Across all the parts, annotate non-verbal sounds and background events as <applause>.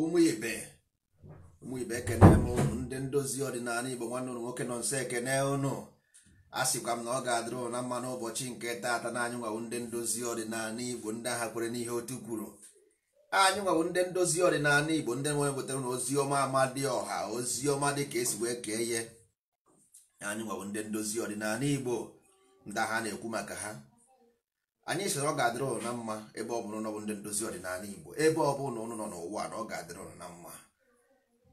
ụmụ ibe ụmụ ibe m ndị ndozi ọdịnala igbo nwanne ụnụ nwoke nọ nso ekene ụnụ a sịkwa m na ọ ga-adịrị ụna mma n'ụbọchị nke taata na anyị nwawu ndị ndozi ọdịnala igbo ndị agha kwere n'ihe otu kwuru anyị nwawu ndị ndozi ọdịnala igbo ndị nwere wetara na ozi ọma dị ọha ozi ọma dị ka esi wee kee ihe anyị nwawu ndị ndozi ọdịnala igbo ndị agha na-ekwu maka ha anyị sịrị ọ ga-adịrị ụnụ na mma ebe ọ bụrụ na ọ bụ ndị ndozi ọdịnala Igbo ebe ọ bụ na nọ n'ụwa na ọ ga-adịrị ụnụ na mma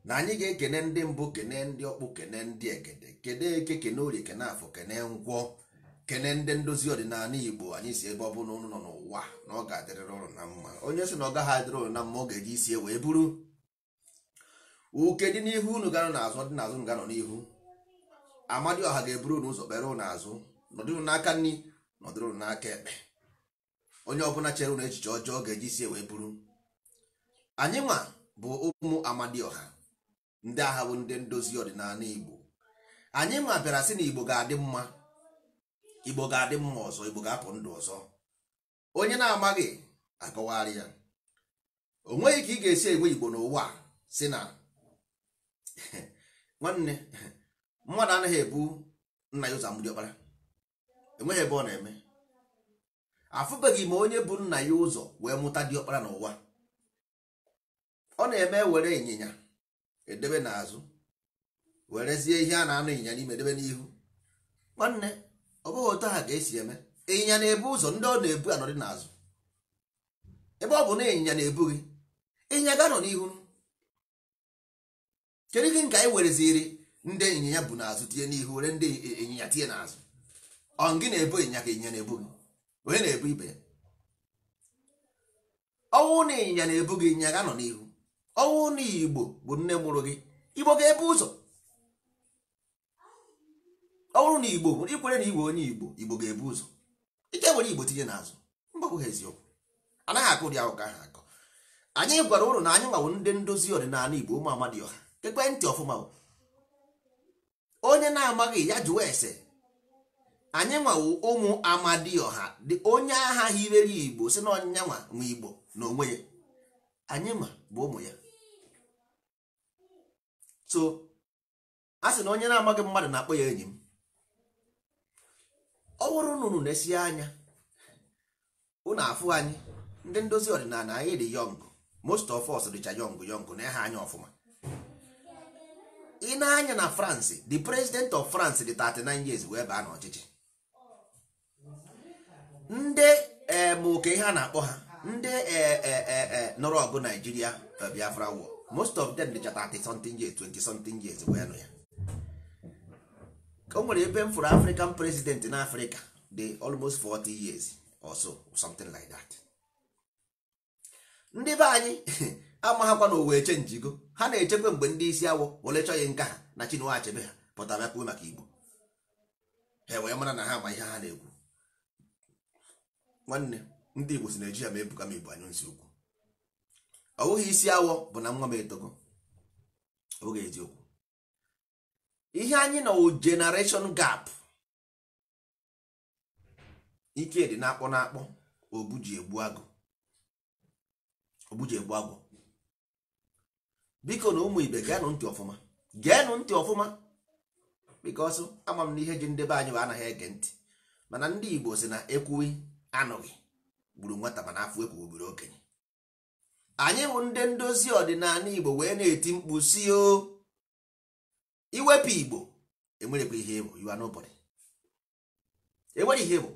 na anyị ga-ekene ndị mbụ kene ndị ọkpụ kene ndị egede kene eke kene orie kene afọ kene ngwọ kene ndị ndozi ọdịnala Igbo anyị si ebe ọ bụ na nọ n'ụwa na ọ ga-adịrịrị ụnụ na mma onye sị na ọ gaghị adịrị na mma ọ ga-eji isi wee buru uke dị n'ihu unu ganọ n'azụ dị n'azụ nganọ n'ihu Amadioha ga-eburu unu ụzọ kpere ụnụ azụ nọdụrụ n'aka nri nọdụrụ n'aka ekpe onye ọbụla chere na echiche ọjọọ ga-eji sie wee bụrụ anyị nwa bụ ụmụ amadioha ndị agha bụ ndị ndozi ọdịnala igbo anyị nwa bịara sị na igbo ga-adị mma igbo ga-adị mma ọzọ igbo ga-apụ ndụ ọzọ onye na-amaghị akọwagharị ya o nweghị ka ị ga-esi egwe igbo n'ụwa si na <laughs> nwanne mmadụ anaghị ebu nna ya ụzọ mgbidi enweghị ebe ọ na-eme afụbeghị m onye bụ nna ya ụzọ wee mụta diọkpara n'ụwa ọ na-eme were ịnyịnya edebe n'azụ werezie ihe a na-anụ ịnyịnya n'ime edebe n'ihu nwanne ọ bụghị otu ha ga-esi eme ịnyịnya na-ebu ụzọ ndị ọ na-ebu anọdị n'azụ ebe ọ bụ na ịnyịnya na-ebu gị ịnyịnya ga-anọ n'ihu kedu ike nke anyị wereziri ndị ịnyịnya bụ n'azụ tinye n'ihu were ndị ịnyịnya tinye n'azụ ọ gị na-ebu ịnyịnya ka ịnyịnya na-ebu gị onye na-ebu ibe ya ọnwụ na ịnyịnya na-ebu gị ịnyịnya ga nọ n'ihu ọnwụ na igbo bụ nne mụrụ gị igbo ga-ebu ụzọ ọnwụrụ na igbo ikwere na igbo onye igbo igbo ga-ebu ụzọ ike were igbo tinye n'azụ mgbagwoghị eziokwu anaghị akụ ụdị ahụ ka ha akọ anyị gwara ụrụ na anyị nwawo ndị ndozi ọdịnala igbo ụmụ amadi ọha ntị ọfụma onye na-amaghị ya jụwa ese anyị nwawo ụmụ amadioha dị onye agha hirere igbo si na ọnyịnya nwa igbo na onwe ya anyị ma bụ ụmụ ya so a sị na onye na-amaghị mmadụ na-akpọ ya enyi m ọ bụrụ na unu na-esi anya unu afụ anyị ndị ndozi ọdịnala anyị dị yọngụ most of us dịcha yọngụ yọngụ na ha anya ọfụma ị na-anya na France the president of France dị 39 years wee baa n'ọchịchị ndị oke eh, ha na-akpọ ha ndị eh, eh, nọrọ ọgụ Naijiria Biafra war most of them dịchata 30 something years 20 something years wee nụ ya o nwere ebe m fụrụ African president na Africa dị almost 40 years or so something like that ndị be anyị <laughs> amaghakwa na owe chenjigo ha na-echekwa mgbe ndị isi awọ were chọghị nka ha na Chinua Achebe ha pụtara bịakwuo maka Igbo ha wee mara na ha ma ihe ha na-ekwu nwanne ndị igbo si naijiria ma ebuka m ibu anyụ nsị ukwu ọ bụghị isi awọ bụ na nwa m etogo oge eziokwu ihe anyị na generation gap ike dị na-akpọ na-akpọ obuji egbu agụ agụ biko na ụmụ ibe geenụ ntị ọfụma geenụ ntị ọfụma bikos ama m na ihe ji ndebe anyị bụ anaghị ege ntị mana ndị igbo si na ekwuwe anụghị gburu nwata mana afọ ekwu gburu okenye anyị bụ ndị ndozi ọdịnala igbo wee na-eti mkpu si o iwepụ igbo ihe enwere ihe bụ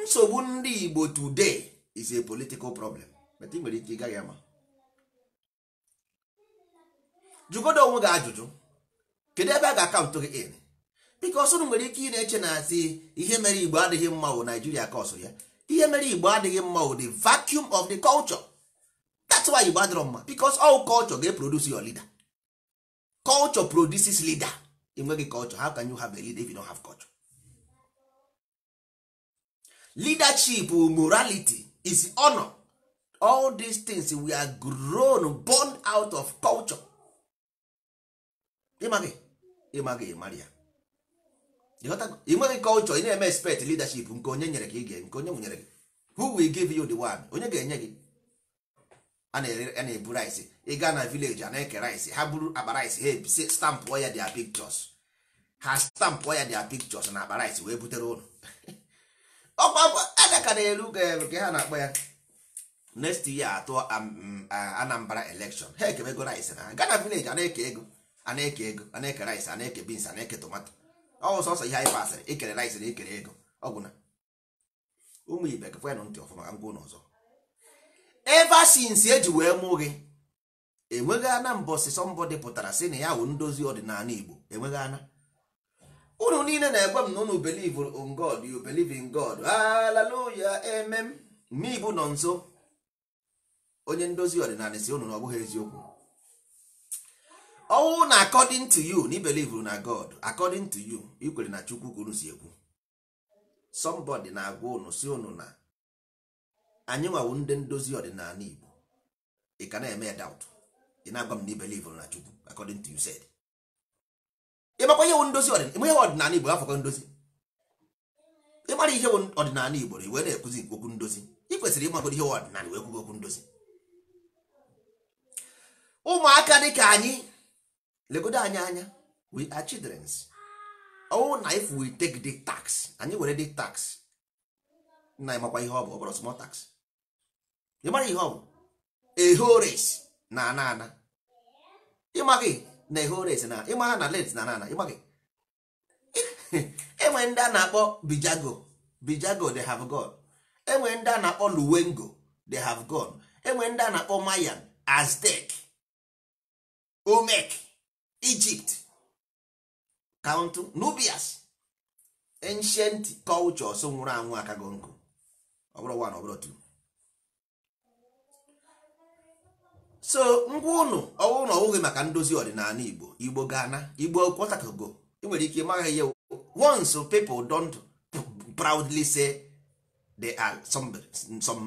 nsogbu ndị igbo today is a political problem but nwere ike ịgaghị ama jụgodo onwe gị ajụjụ kedu ebe a ga-akaụntụ gị in biko ọsụrụ nwere ike ị na-eche na asị ihe mere igbo adịghị mma wụ naijiria ka ya ihe mere igbo adịghị mma o the vacuum of the culture that's why igbo adịrọ mma because all culture ga produce your leader culture produces leader enweghị culture how can you have a leader if you don't have culture leadership morality is honor all these things we are grown born out of culture ịmaghị ịmaghị mara ị nweghị culture ị na-eme expect leadership nke onye nyere gị ige nke onye nwunyere gị who will give you the one onye ga-enye gị a na-ebu rice ị gaa na village a na-eke rice ha buru akpa rice ha ebise stampụ ya dia pictures ha stampụ ya dia pictures na akpa rice wee butere ụlọ <laughs> ọkwa adaka na-eru nke ha na-akpọ ya next year atụ mm, Anambra election ha ekemego rice na ha gaa na village a na-eke ego a na-eke ego a na-eke rice a na-eke beans a na-eke tomato Ọ sọsọ ihe anyị pasịrị ikere laisịrị ikere ego ọgwụna ụmụ ibe kefenụ ntị ọfụma ka m gwuo n'ọzọ ever eji e wee mụ gị enweghị ana mbọsị sọmbọdị pụtara si na ya wụ ndozi ọdịnala igbo enweghị ana unu niile na-egwe m na unu believe in God you believe in God hallelujah amen n'ibu nọ nso onye ndozi ọdịnala si unu na ọ bụghị eziokwu ọwụ na according to you na ibelive na god according to you ikwere na chukwu kwuru si ekwu somebody na-agwa unu si unu na anyị nwawu ndị ndozi ọdịnala igbo ị ka na-eme doubt ị na-agwa m na ibelive na chukwu according to you said ịmakwa ihe ndozi ọdịnala igbo afọkọ ndozi ịmara ihe ọdịnala igbo na iwe na-ekwuzi okwu ndozi ị kwesịrị ịmagodo ihe ọdịnala wee kwugo okwu ndozi ụmụaka dị ka anyị legodo anyị anya we are childrens oh na if we take the tax anyị were the tax na makwa ihe ọ bụ ọ small tax ị mara ihe ọ bụ ehores na ana ana ịmaghị na ehores na ịmaha na let na ana ana ịmaghị <laughs> enwere ndị a na-akpọ bijago bijago they have gone enwere ndị a na-akpọ luwengo they have gone enwere ndị a na-akpọ mayan aztec omek Egypt count nubias ancient cultures nwụrụ anwụ akago nkụ ọbụrụ bụrụ one ọ two so ngwa ụnụ ọwụrụ na ọwụghị maka ndozi ọdịnala Igbo Igbo gana Igbo kwọtakago ị nwere ike maghị ya once people don't proudly say they are some, some,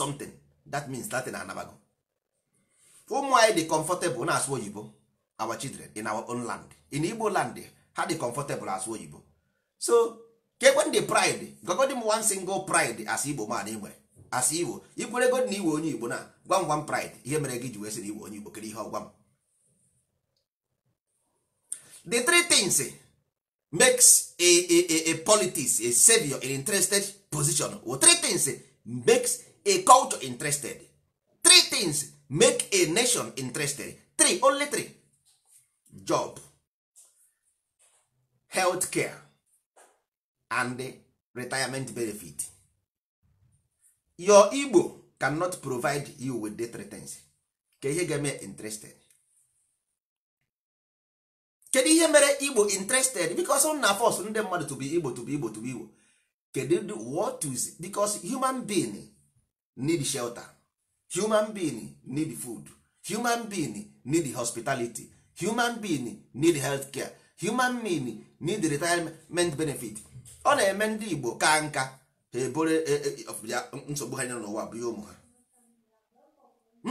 something that means Latin anabago ụmụ anyị dị comfortable na-asụ oyibo our children in our own land in igbo land ha dị comfortable as oyibo so kekwen the pride gogodi m one single pride as igbo man ị e as igbo ikwere god na iwe onye igbo na gwam gwam pride ihe mere gị ji wee sị na igbo onye igbo kere ihe ọgwa m the three things makes a, a, a, a politics a savior an interested position or three things makes a culture interested three things make a nation interested three only three job health care and retirement benefit your igbo cannot provide you with the things ka ihe ga-eme interested kedu ihe mere igbo interested because on na force ndị mmadụ to be igbo to be igbo to be igbo kedu what is because human being need shelter human being need food human being need hospitality human being need health care human being need retirement benefit ọ na-eme ndị igbo ka nka ha ebore e, e, nsogbu ha nyere n'ụwa bụ ihe ụmụ ha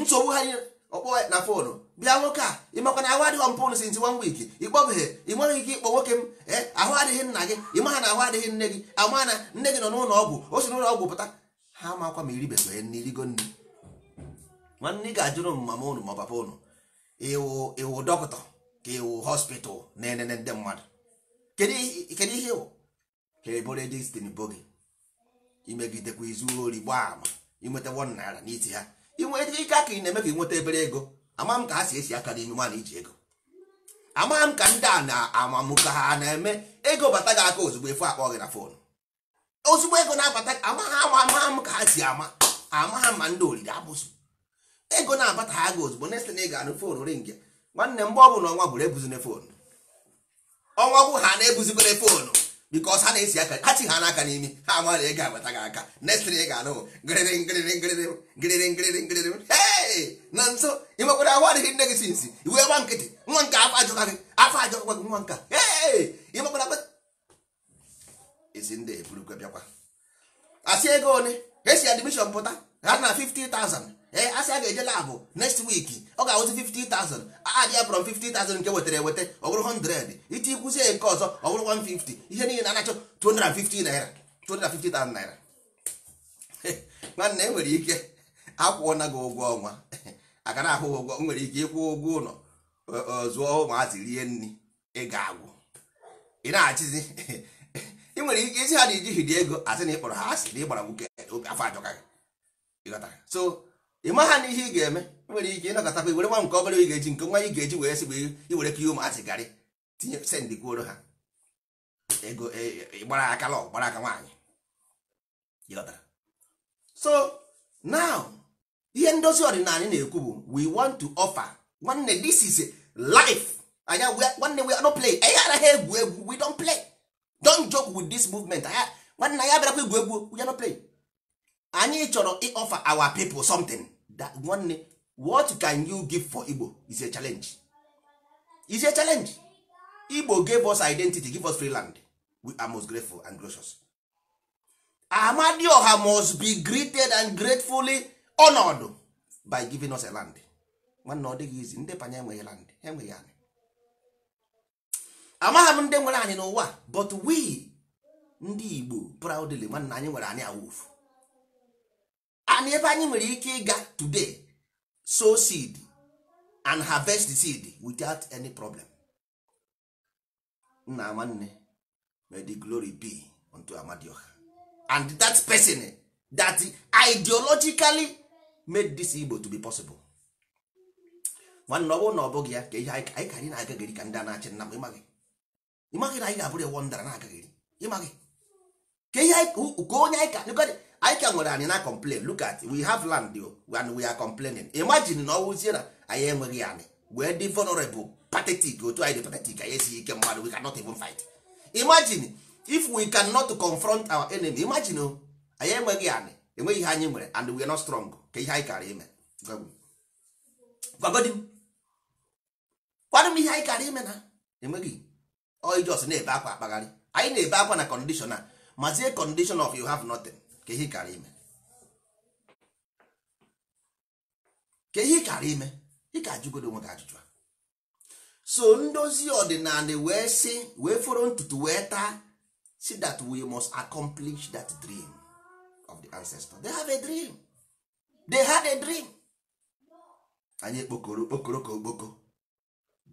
nsogbu ha nyere ọkpọ na fonu bịa nwoke a ịmakwa na ahụ adịghị mpụn since one week ịkpọbeghị ị ike ịkpọ nwoke m e, ahụ adịghị nna gị ịmaha na ahụ adịghị nne gị ama na nne gị nọ n'ụlọ ọgwụ o si n'ụlọ ọgwụ pụta ha akwa ma iribeghị nne irigo nne nwanne ị ga-ajụrụ m mama ụnụ ma ọ papa ụnụ iwu iwu dọkịta ka iwu hospital na-enene ndị mmadụ kedu ihe iwu ka ebore destin bo gị imegidekwa izu ori gbaa ama inweta won naira n'iti ha inweta ike aka ị na-eme ka ịnweta ebere ego ama m ka ha si esi aka n'ime nwaanyị iji ego ama m ka ndị a na-amamụ ka ha na-eme ego bata gị aka ozugbo efu akpọ gị na fon ozugbo ego na-abata ama ha ama m ka ha si ama ama ma ndị oriri abụzụ ego na-abata aga ozugbo next na ị ga-anụ fon ringi nwanne mgbe ọ bụla ọnwa bụrụ ebuzine foonu ọnwa bụ ha na-ebuzibere foonu bikos ha na-esi aka ha chi ha n'aka n'imi ha amara ị ga-abata gị aka next na ị ga-anụ ngịrịrị ngịrịrị ngịrịrị ngịrịrị ngịrịrị ngịrịrị na nso ị nwekwara ahụ adịghị nne gị sinsi iwe gba nkịtị nwa nke afọ ajọka gị afọ ajọkwa gị nwa nka ee ị nwekwara esi ndị eburukwe bịakwa asị ego one esi admishọn pụta ha na 50,000 ee eh, asị a ga-eje labụ next week ọ ga-awụzi 50,000 adịa from 50,000 nke wetara eweta ọ bụrụ 100 iti kwụzie nke ọzọ ọ bụrụ 150 ihe niile na-achọ 250 naira 250,000 naira nwanne e nwere ike <laughs> akwụọna gị ụgwọ ọnwa akara <laughs> ahụ ụgwọ nwere ike ịkwụ ụgwọ ụlọ zụọ ụmụazị rie nri ị ga-agwụ ị na-achịzi <laughs> ị nwere ike isi ha na ijihiri ego asị na ịkpọrọ ha asị na ịgbara nwoke afọ ajọka gị so ị maha na ihe ị ga-eme nwere ike ịnọkọtakwa iwere nwa nke obere ị ga-eji nke nwa ị ga-eji wee sị bụ iwere ka ihe ụmụazị garị tinye sendị kwuoro ha ego e, e, gbara aka lọ gbara aka nwaanyị so now ihe ndozi ọdịnala na-ekwu bụ we want to offer nwanne this is life anya nwanne we no play anyị anaghị egwu egwu we don't play don't joke with this movement nwanne anyị abịarakwa egwu egwu we no play anyị chọrọ ịofa our people something that one, what can you give for igbo is a challenge is a challenge igbo gave us identity give us free land we are most grateful and gracious amadioha must be greeted and gratefully honored by giving us a land nwanne ọ dịghị izi ndị panya enweghị land enweghị anyị amagha m ndị nwere anyị n'ụwa but we ndị igbo proudly nwanne anyị nwere anyị awufu and ebe anyị nwere ike ịga today sow seed and harvest the seed without any problem nna nwanne may the glory be unto amadioha and that person that ideologically made this Igbo to be possible nwanne ọ bụrụ na ọ bụghị ya ka ihe anyị anyị na-agagịrị ka ndị a na-achị nna m ịmaghị ịmaghị na anyị ga-abụrụ ewo ndara na-agagịrị ịmaghị ka ihe ka onye anyị ka anyị ka nwere anyị na complain look at we have land and we are complaining imagine na ọwụzie na anyị enweghị anyị wee dị vulnerable pathetic otu anyị dị pathetic anyị esighị ike mmadụ we cannot even fight imagine if we cannot confront our enemy imagine oh, anyị enweghị anyị enweghị ihe anyị nwere and we are not strong ka ihe anyị kara ime gwagodi m kwadụ m ihe anyị kara ime na enweghị oijos na-ebe akwa akpagharị anyị na-ebe akwa na condition a mazie condition of you have nothing ka ihe kara ime ka ihe kara ime ị ka ajụgodo onwe gị ajụjụ so ndozi ọdịnala wee sị wee fọrọ ntutu wee taa si that we must accomplish that dream of the ancestor they have a dream they had a dream anyị kpokoro okpokoro ka okpoko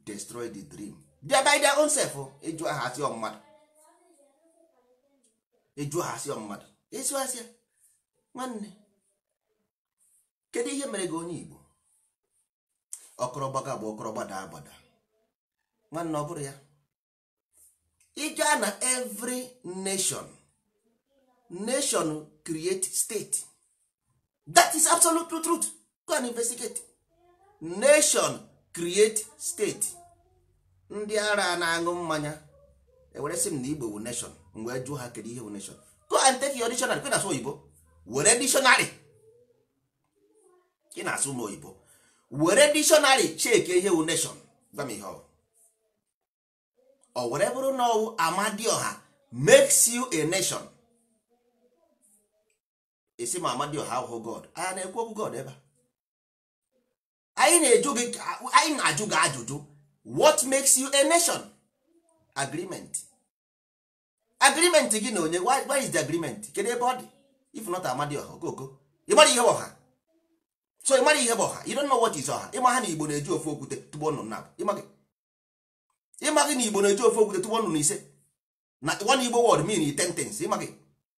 destroy the dream they by their own self ịjụ ha asị mmadụ ịjụ aha asị ịsụ asịa nwanne kedu ihe mere gị onye Igbo ọkọrọ bụ ọkọrọ gbada agbada nwanne ọ bụrụ ya ịga na every nation nation create state that is absolute truth go and investigate nation create state ndị ara na-aṅụ mmanya ewere sị m na Igbo bụ nation mgbe wee jụọ ha kedu ihe bụ nation go and take your dictionary kwe na-asụ oyibo were dictionary ị na-asụ ụmụ oyibo were dictionary check ihe wu nation gwa m ihe ọ ọ were bụrụ na ọwụ amadioha makes you a nation esi ma amadioha ahụhụ oh god a na-ekwu okwu god ebe anyị na-eju gị anyị na-ajụ gị ajụjụ what makes you a nation agreement agreement gị na onye why is the agreement kedu ebe ọ dị if not amadi ọha okoko ịmara ihe ọha so ịmara ihe bụ ọha you don't know what is ọha ịma ha na igbo na-eji ofe okwute tụgbo nnụnụ na ịma gị na igbo na-eji ofe okwute tụgbo nnụnụ ise na one igbo word mean ten things ịma gị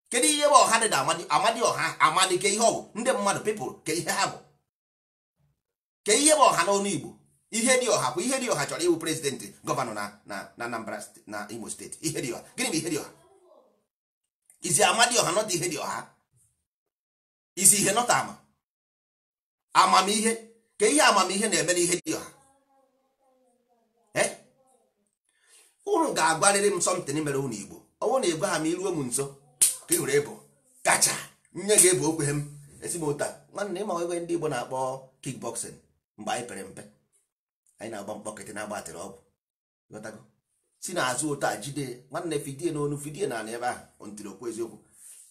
kedu ihe bụ ọha dị na amadi amadi ọha amadi ke ihe ọ bụ ndị mmadụ people ke ihe ha bụ ke ihe bụ ọha n'ọnụ igbo ihe dị ọha bụ ihe dị ọha chọrọ iwu prezidentị gọvanọ na na Anambra na Imo steeti ihe dị ọha gịnị bụ ihe dị ọha izi ama dị ọha nọta ihe dị ọha izi ihe nọta ama amamihe ka ihe amamihe na-eme na ihe dị ọha unu ga-agwarịrị m sọmtin mere unu Igbo ọ bụrụ na ebe ha ma iruo m nso ka ị hụrụ ịbụ kacha nye ga-ebu okwe m esi m ụta nwanne ịma ebe ndị Igbo na-akpọ kickboxing mgbe anyị pere mpe anyị na-agba mkpọkịtị na-agbatịrị ọgwụ ghọtago si n'azụ otu a jide nwanne fidie na n'onu fidie na ebe ahụ ntiri okwu eziokwu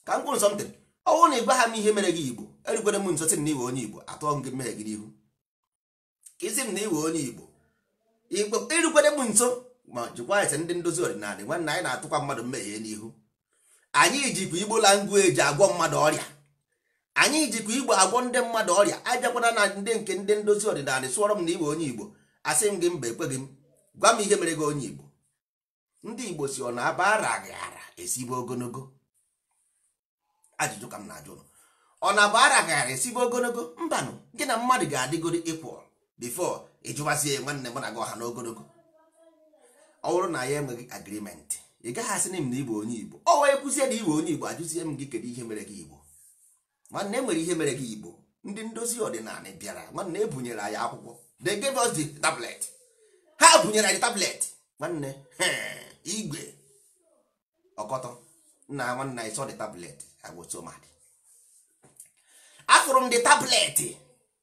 ka m kwuru nsọmtịrị ọnwụ na ịgwa ha m ihe mere gị igbo erugwere m nso sị m na iwe onye igbo atụọ m gị mmehie gị n'ihu ka isi m na iwe onye igbo erugwere m nso ma jikwa ese ndị ndozi ọdịnala nwanne anyị na-atụkwa mmadụ mmehie n'ihu anyị jikwa igbo eji agwọ mmadụ ọrịa anyị jikwa igbo agwọ ndị mmadụ ọrịa ajakwana na ndị nke ndị ndozi ọdịnala sụọrọ m na iwe onye igbo asị m gị mba ekweghị m gwa m ihe mere gị onye igbo ndị igbo si ọ na-aba ara gị ara esibe ogologo ajụjụ ka m na-ajụ ọ na-aba ara gị ara esibe ogologo mbanụ gị na mmadụ ga-adịgoro ịkwụ bifo ịjụwazie nwanne mụ na gị ọha na ogologo ọ bụrụ na ya enweghị agrimenti ị gaghị asị m na igbo onye igbo ọ wee kwụzie na igbo onye igbo ajụzie m gị kedu ihe mere gị igbo nwanne nwere ihe mere gị igbo ndị ndozi ọdịnala bịara nwanne ebunyere anyị akwụkwọ they gave us the tablet ha bunyere anyị tablet nwanne <laughs> igwe ọkọtọ nna nwanne anyị sọ the tablet agwosomad afụrụ m the tablet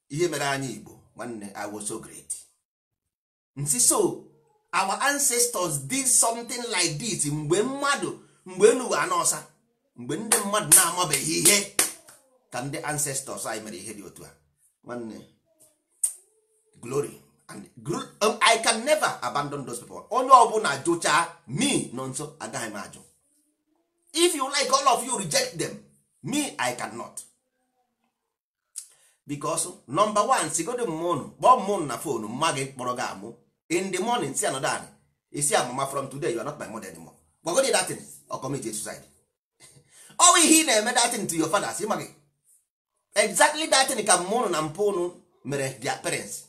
ihe mere anyị igbo nwanne agwoso great nsi so our ancestors did something like this mgbe mmadụ mgbe enuwe anọsa mgbe ndị mmadụ na-amabeghị ihe ka ndị ancestors anyị mere ihe dị otu a nwanne glory and um, i can never abandon those people onye ọbụla jụchaa me nọ nso agaghị m ajụ if you like all of you reject them me i cannot because number one sigodo mmụnụ kpọọ mmụnụ na fon mma gị kpọrọ gị amụ in the morning si anọdụ anyị isi amama from today you are not my mother anymore gbagodi datin ọkọmeji suicide ọwụ <laughs> ihe ị na-eme datin to your fathers ịma gị exactly datin ka mmụnụ na mpụ ụnụ mere their parents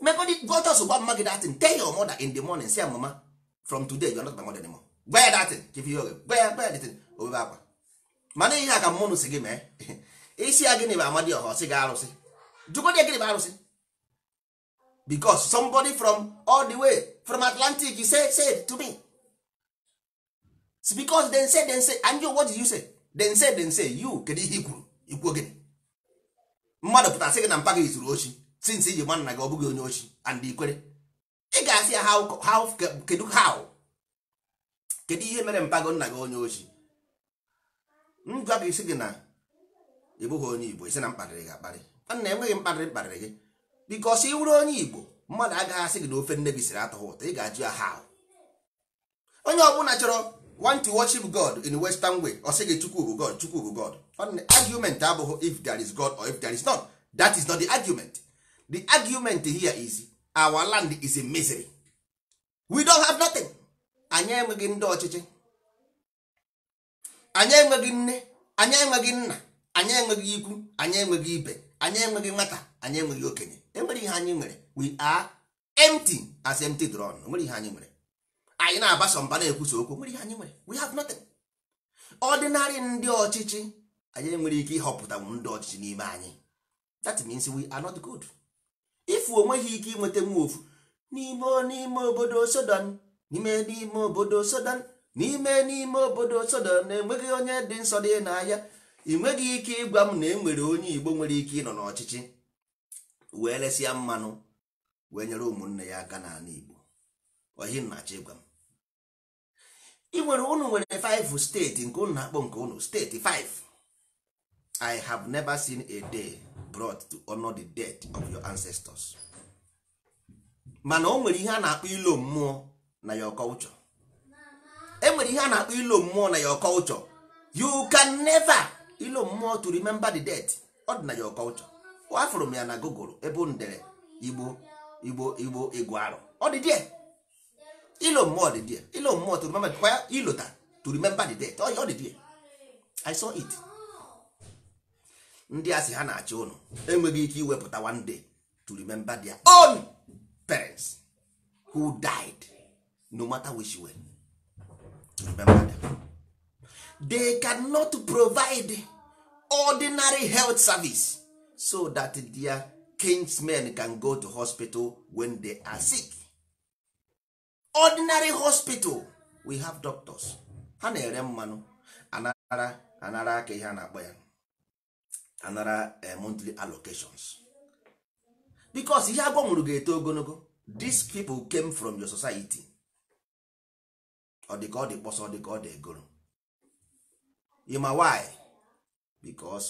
mekọdị go just gwa mma gị datin tell your mother in the morning say mama from today you are not my mother anymore gwa ya datin give you gwa ya gwa ya datin obebe akwa mana ihe a ka mmanụ si gị mee isi ya gịnị bụ amadi ọha ọsị gị arụsị jụgodị gịnị bụ arụsị because somebody from all the way from atlantic you say say to me It's because then say then say and you what did you say then say then say you kedu ihe i kwuru ikwu gịnị mmadụ pụtasị gị na mpa gị zuru ochi since iji gba nna gị ọ bụghị onye ochi and ikwere ị ga-asị ya how kedu how kedu ihe mere mpago nna gị onye ochi m gwa gị isi gị na ị bụghị onye igbo isi na mkparịrị gị akparị nna enweghị mkparịrị mkparịrị gị bikos ị wụrụ onye igbo mmadụ agaghị asị gị na ofe nne gị siri atọghị ụtọ ị ga-ajụ ya how onye ọbụla chọrọ want to worship god in western way ọ sị gị chukwu bụ god chukwu bụ god argument abụghị if there is god or if there is not that is not the argument the argument here is our land is a misery we don't have nothing anyị enweghị ndị ọchịchị anyị enweghị nne anyị enweghị nna anyị enweghị ikwu anyị enweghị ibe anyị enweghị nwata anyị enweghị okenye enwere ihe anyị nwere we are empty as empty drone e nwere ihe anyị nwere anyị na-agbasa mba na-ekwusa okwu e nwere ihe anyị nwere we have nothing ordinary ndị ọchịchị anyị enwere ike ịhọpụta ndị ọchịchị n'ime anyị that means we are not good. ifu onweghị ike inweta nwa n'ime n'ime obodo Sodan n'ime n'ime obodo Sodan n'ime n'ime obodo Sodan na-enweghị onye dị nsọ dị n'ahịa ị nweghị ike ịgwa m na enwere onye Igbo nwere ike ịnọ n'ọchịchị wee lesịa mmanụ wee nyere ụmụnne ya aka n'ala Igbo ohi na-achọ ịgwa m ị nwere unu nwere 5 steeti nke unu na-akpọ nke unu steeti 5 i have never seen a day brought to honor the death of your ancestors mana o nwere ihe a na-akpọ ilo mmụọ na your culture e nwere ihe a na-akpọ ilo mmụọ na your culture you can never ilo mmụọ to remember the death ọ dị na your culture afụrụ m ya na google ebe ndere igbo igbo igbo igbo arụ ọ dị ilo mmụọ dị ilo mmụọ to remember kwa ilota to remember the death ọ dị die i saw it ndị a ha na-achị ụnụ enweghị ike iwepụta one day to remember their own parents who died no matter which way to remember them. they cannot provide ordinary health service so that their kinsmen can go to hospital when they are sick. ordinary hospital we have doctors ha na-ere mmanụ anara anara aka ihe a na-akpọ ya anara eh, monthly allocations because ihe agbanwere ga-eto ogologo these people came from your society ọ dị ka ọ dị kpọsọ dị ka ọ dị egoro ịma why because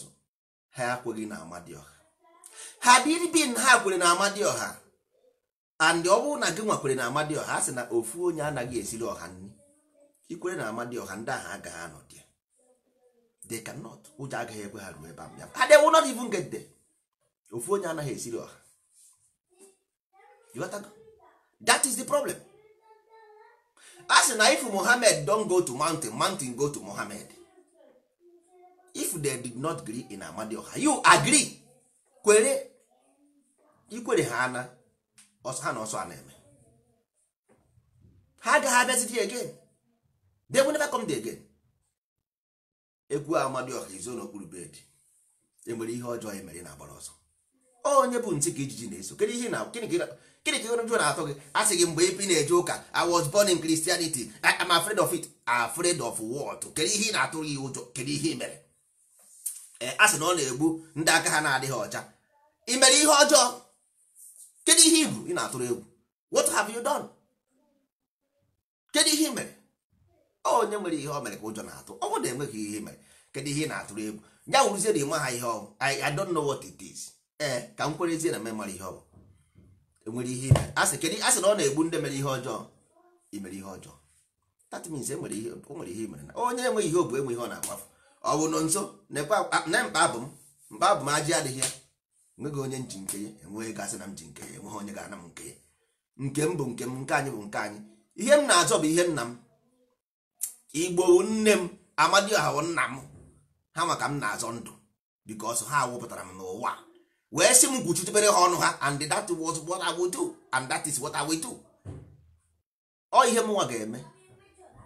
ha ekweghị na ọha ha dịribin ha kwere na ọha and ọ bụrụ na gị nwakwere na ọha a sị na ofu onye anaghị esiri ọha nri ikwere na ọha ndị ahụ agaghị anọ they cannot ụjọ agaghị ekwe ha ruo ebe ahụ ya they will not even get there ofu onye anaghị esiri ọha that is the problem a sị na if mohammed don go to mountain mountain go to mohammed if they did not agree in amadioha you agree kwere ikwere ha ana ha na ọsọ a na-eme ha agaghị abịazidi again they will never come there again egwu amadioha izo n'okpuru bed enwere ihe ọjọọ anyị e mere na-agbara ọsọ onye bụ ntị ka ijiji na-eso gịnị ka jụ na-atọ gị asị gị mgbe ebe ị na-eje ụka I was born in Christianity I am afraid of it afraid of what kedu ihe ị na-atụrụ ya ụjọ kedu ihe ị mere a sị na ọ na-egbu ndị aka ha na-adịghị ọcha ị mere ihe ọjọọ kedu ihe ibu ị na-atụrụ egwu what have you done kedu ihe ị mere onye nwere ihe o mere ka ụjọ na-atụ ọ bụrụ na enweghị ihe mere kedu ihe ị na-atụrụ egwu ya wụrụzie na ịma ha ihe ọ I don't know what it is ee ka m kwerezie na memara ihe ọ enwere ihe ime a sị kedu a sị na ọ na-egbu ndị mere ihe ọjọọ imere ihe ọjọọ that means enwere ihe o nwere ihe imere na onye enweghị ihe obu enwe ihe ọ na-akpafu ọ bụ nọ nso na mkpa abụ m mkpa abụ m ajị adịghị ya enweghị onye nji nke ya enweghị gasị na m ji nke ya enweghị onye ga-ana m nke ya nke m bụ nke m nke anyị bụ nke anyị ihe m na-azọ bụ ihe nna m igbo nne m amadioha nna m ha maka m na-azọ ndụ because ha wụpụtara m n'ụwa wee sị m gwuchitebere ha ọnụ ha and that was what I would do and that is what I will do ọ ihe mụnwa ga-eme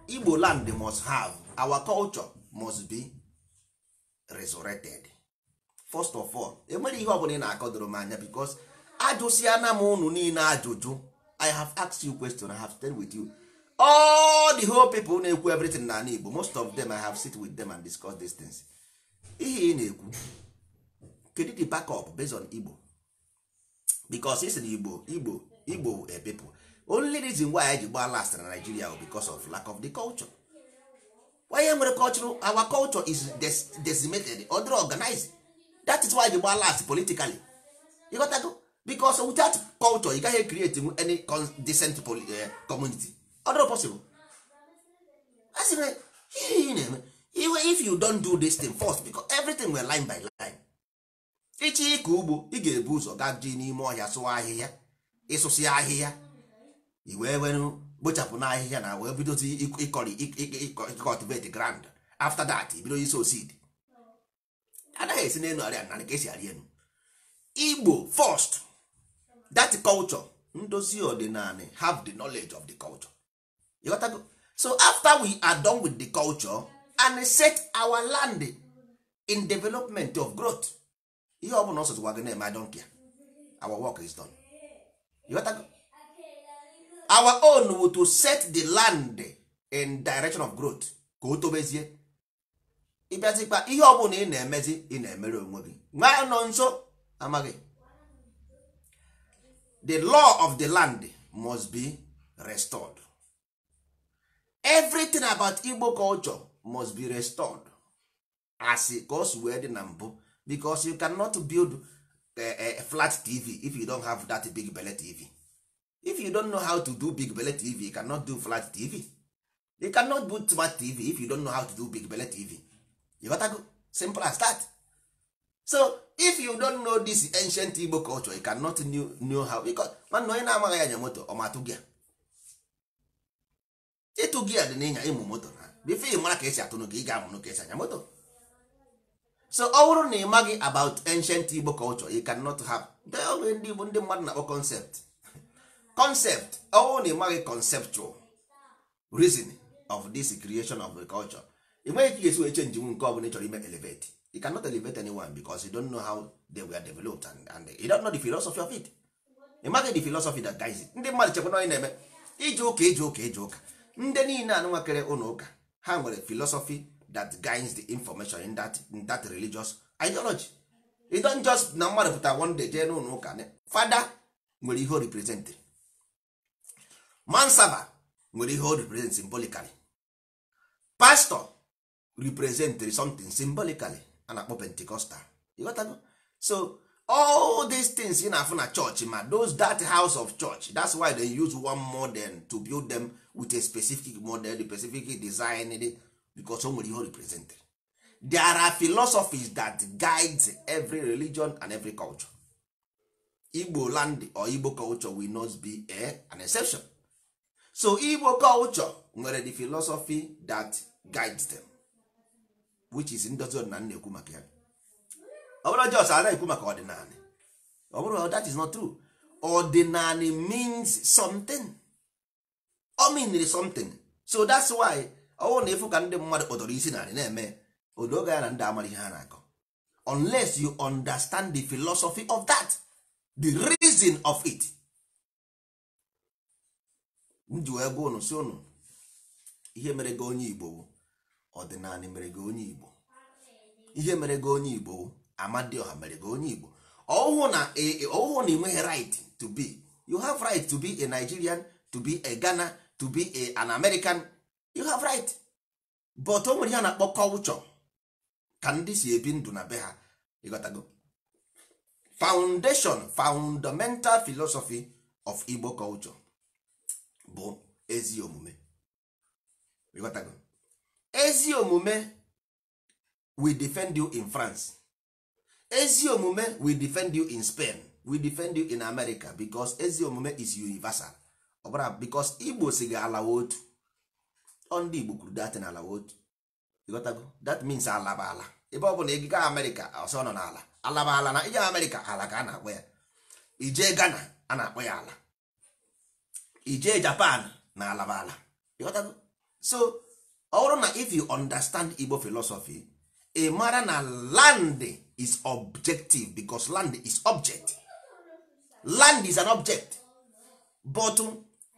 igbo land must have our culture must be resurrected first of all enwere ihe ọbụla ị na-akọdoro m anya because ajụsịana m unu niile ajụjụ I have asked you question I have stayed with you all the whole people na-ekwu everything na ala igbo most of them i have sit with them and discuss these things ihe ị na-ekwu kedu the backup based on igbo because it's na igbo igbo Ibo people only reason why anyị ji last na nigeria because of lack of the culture onye nwere culture? our culture is decimated other organized that is why ji gbaa last politically You got go? because without culture you gaghị create any decent eh, community ọdụrụ possible a sị na ihe ị na-eme iwe if you don't do this thing first because everything were line by line ịchị ịkọ ugbo ị ga-ebu ụzọ gaa ji n'ime ọhịa sụọ ahịhịa ịsụsị ahịhịa i wee were kpochapụ n'ahịhịa na wee bidozi ịkọrị cultivate grand after that bido iso seed anaghị esi n'elu arịa narị ka esi arị elu igbo first that culture ndozi ọdịnala have the knowledge of the culture you go. so after we are done with the culture and set our land in development of growth ihe ọ name. I don't care. our work is done you got to go. our own to set the land in direction of growth ka o tobezie ịbịazikpa ihe o bụla ị na-emezi ị na-emere onwe gị nwa nọ nso amaghị the law of the land must be restored everything about igbo culture must be restored as ka o si wee dị na mbụ because you cannot build eh, eh, a flat tv if you don't have that big belle tv if you don't know how to do big belle tv you cannot do flat tv you cannot do smart tv if you don't know how to do big belle tv you got to go simple as that so if you don't know this ancient igbo culture you cannot know, how because onye na-amaghị anya moto ọ gị ịtụ gia dị n'ịnya ịmụ moto na bife ị mara ka esi atụ ka ị ga-amụnụ ka esi anya moto so ọ bụrụ na ị maghị about ancient Igbo culture you cannot have dogbe ndị Igbo ndị mmadụ na-akpọ concept <laughs> concept ọ bụrụ na ị maghị conceptual reason of this creation of the culture ị nweghị ka esi wee chenji nwu nke ọ bụla ị chọrọ ime elevate you cannot elevate anyone because you don't know how they were developed and, and you don't know the philosophy of it ị maghị the philosophy that guides ndị mmadụ chekwa na onye na-eme ije ụka ije ụka ije ụka ndị niile anụnwa kere ụlọ ụka ha nwere philosophy that guides the information in that, in that religious ideology It don't just na mmadụ pụta one day jee n'ụlọ ụka fada nwere ihe o represent mansaba nwere ihe o represent symbolically pastor represent something symbolically a na-akpọ pentecostal you got go? so all these things you na na-afụ na church ma those that house of church that's why they use one model to build them with a specific model the specific design because o nwere ihe represent there are philosophies that guide every religion and every culture igbo land or igbo culture will not be a, an exception so igbo culture nwere the philosophy that guides them which is ndozi ọdịnala na-ekwu maka ya ọ bụrụ jos ana ekwu maka ọdịnala that is not true ọdịnala means something ọ mean something so that's why ọwụ na efu ka ndị mmadụ kpọtọrọ isi narị na-eme odoga ya na ndị amara ihe ha na-akọ unless you understand the philosophy of that the reason of it nji wee gwa unu si unu ihe mere gị onye igbo ọdịnala mere gị onye igbo ihe mere gị onye igbo amadioha mere gị onye igbo ọhụụ e, e, na ị nweghị right to be you have right to be a Nigerian to be a Ghana to be a, an american you have right but o nwere ihe a na-akpọ culture ka ndị si ebi ndụ na be ha ịghọtago foundation fundamental philosophy of igbo culture bụ ezi omume ịghọtago ezi omume we defend you in france ezi omume we defend you in spain we defend you in america because ezi omume is universal ọbara bikos igbo si gị ala otu ndị igbo kwuru na ala otu ịghọtago that means alaba ala ebe ọ bụla ịga amerịka ọsọ nọ n'ala alaba ala na ije amerịka ala ka a na-akpọ ya ije ghana a na-akpọ ya ala ije japan na alaba ala ịghọtago so ọ bụrụ na if you understand igbo philosophy ị mara na land is objective because land is object land is an object but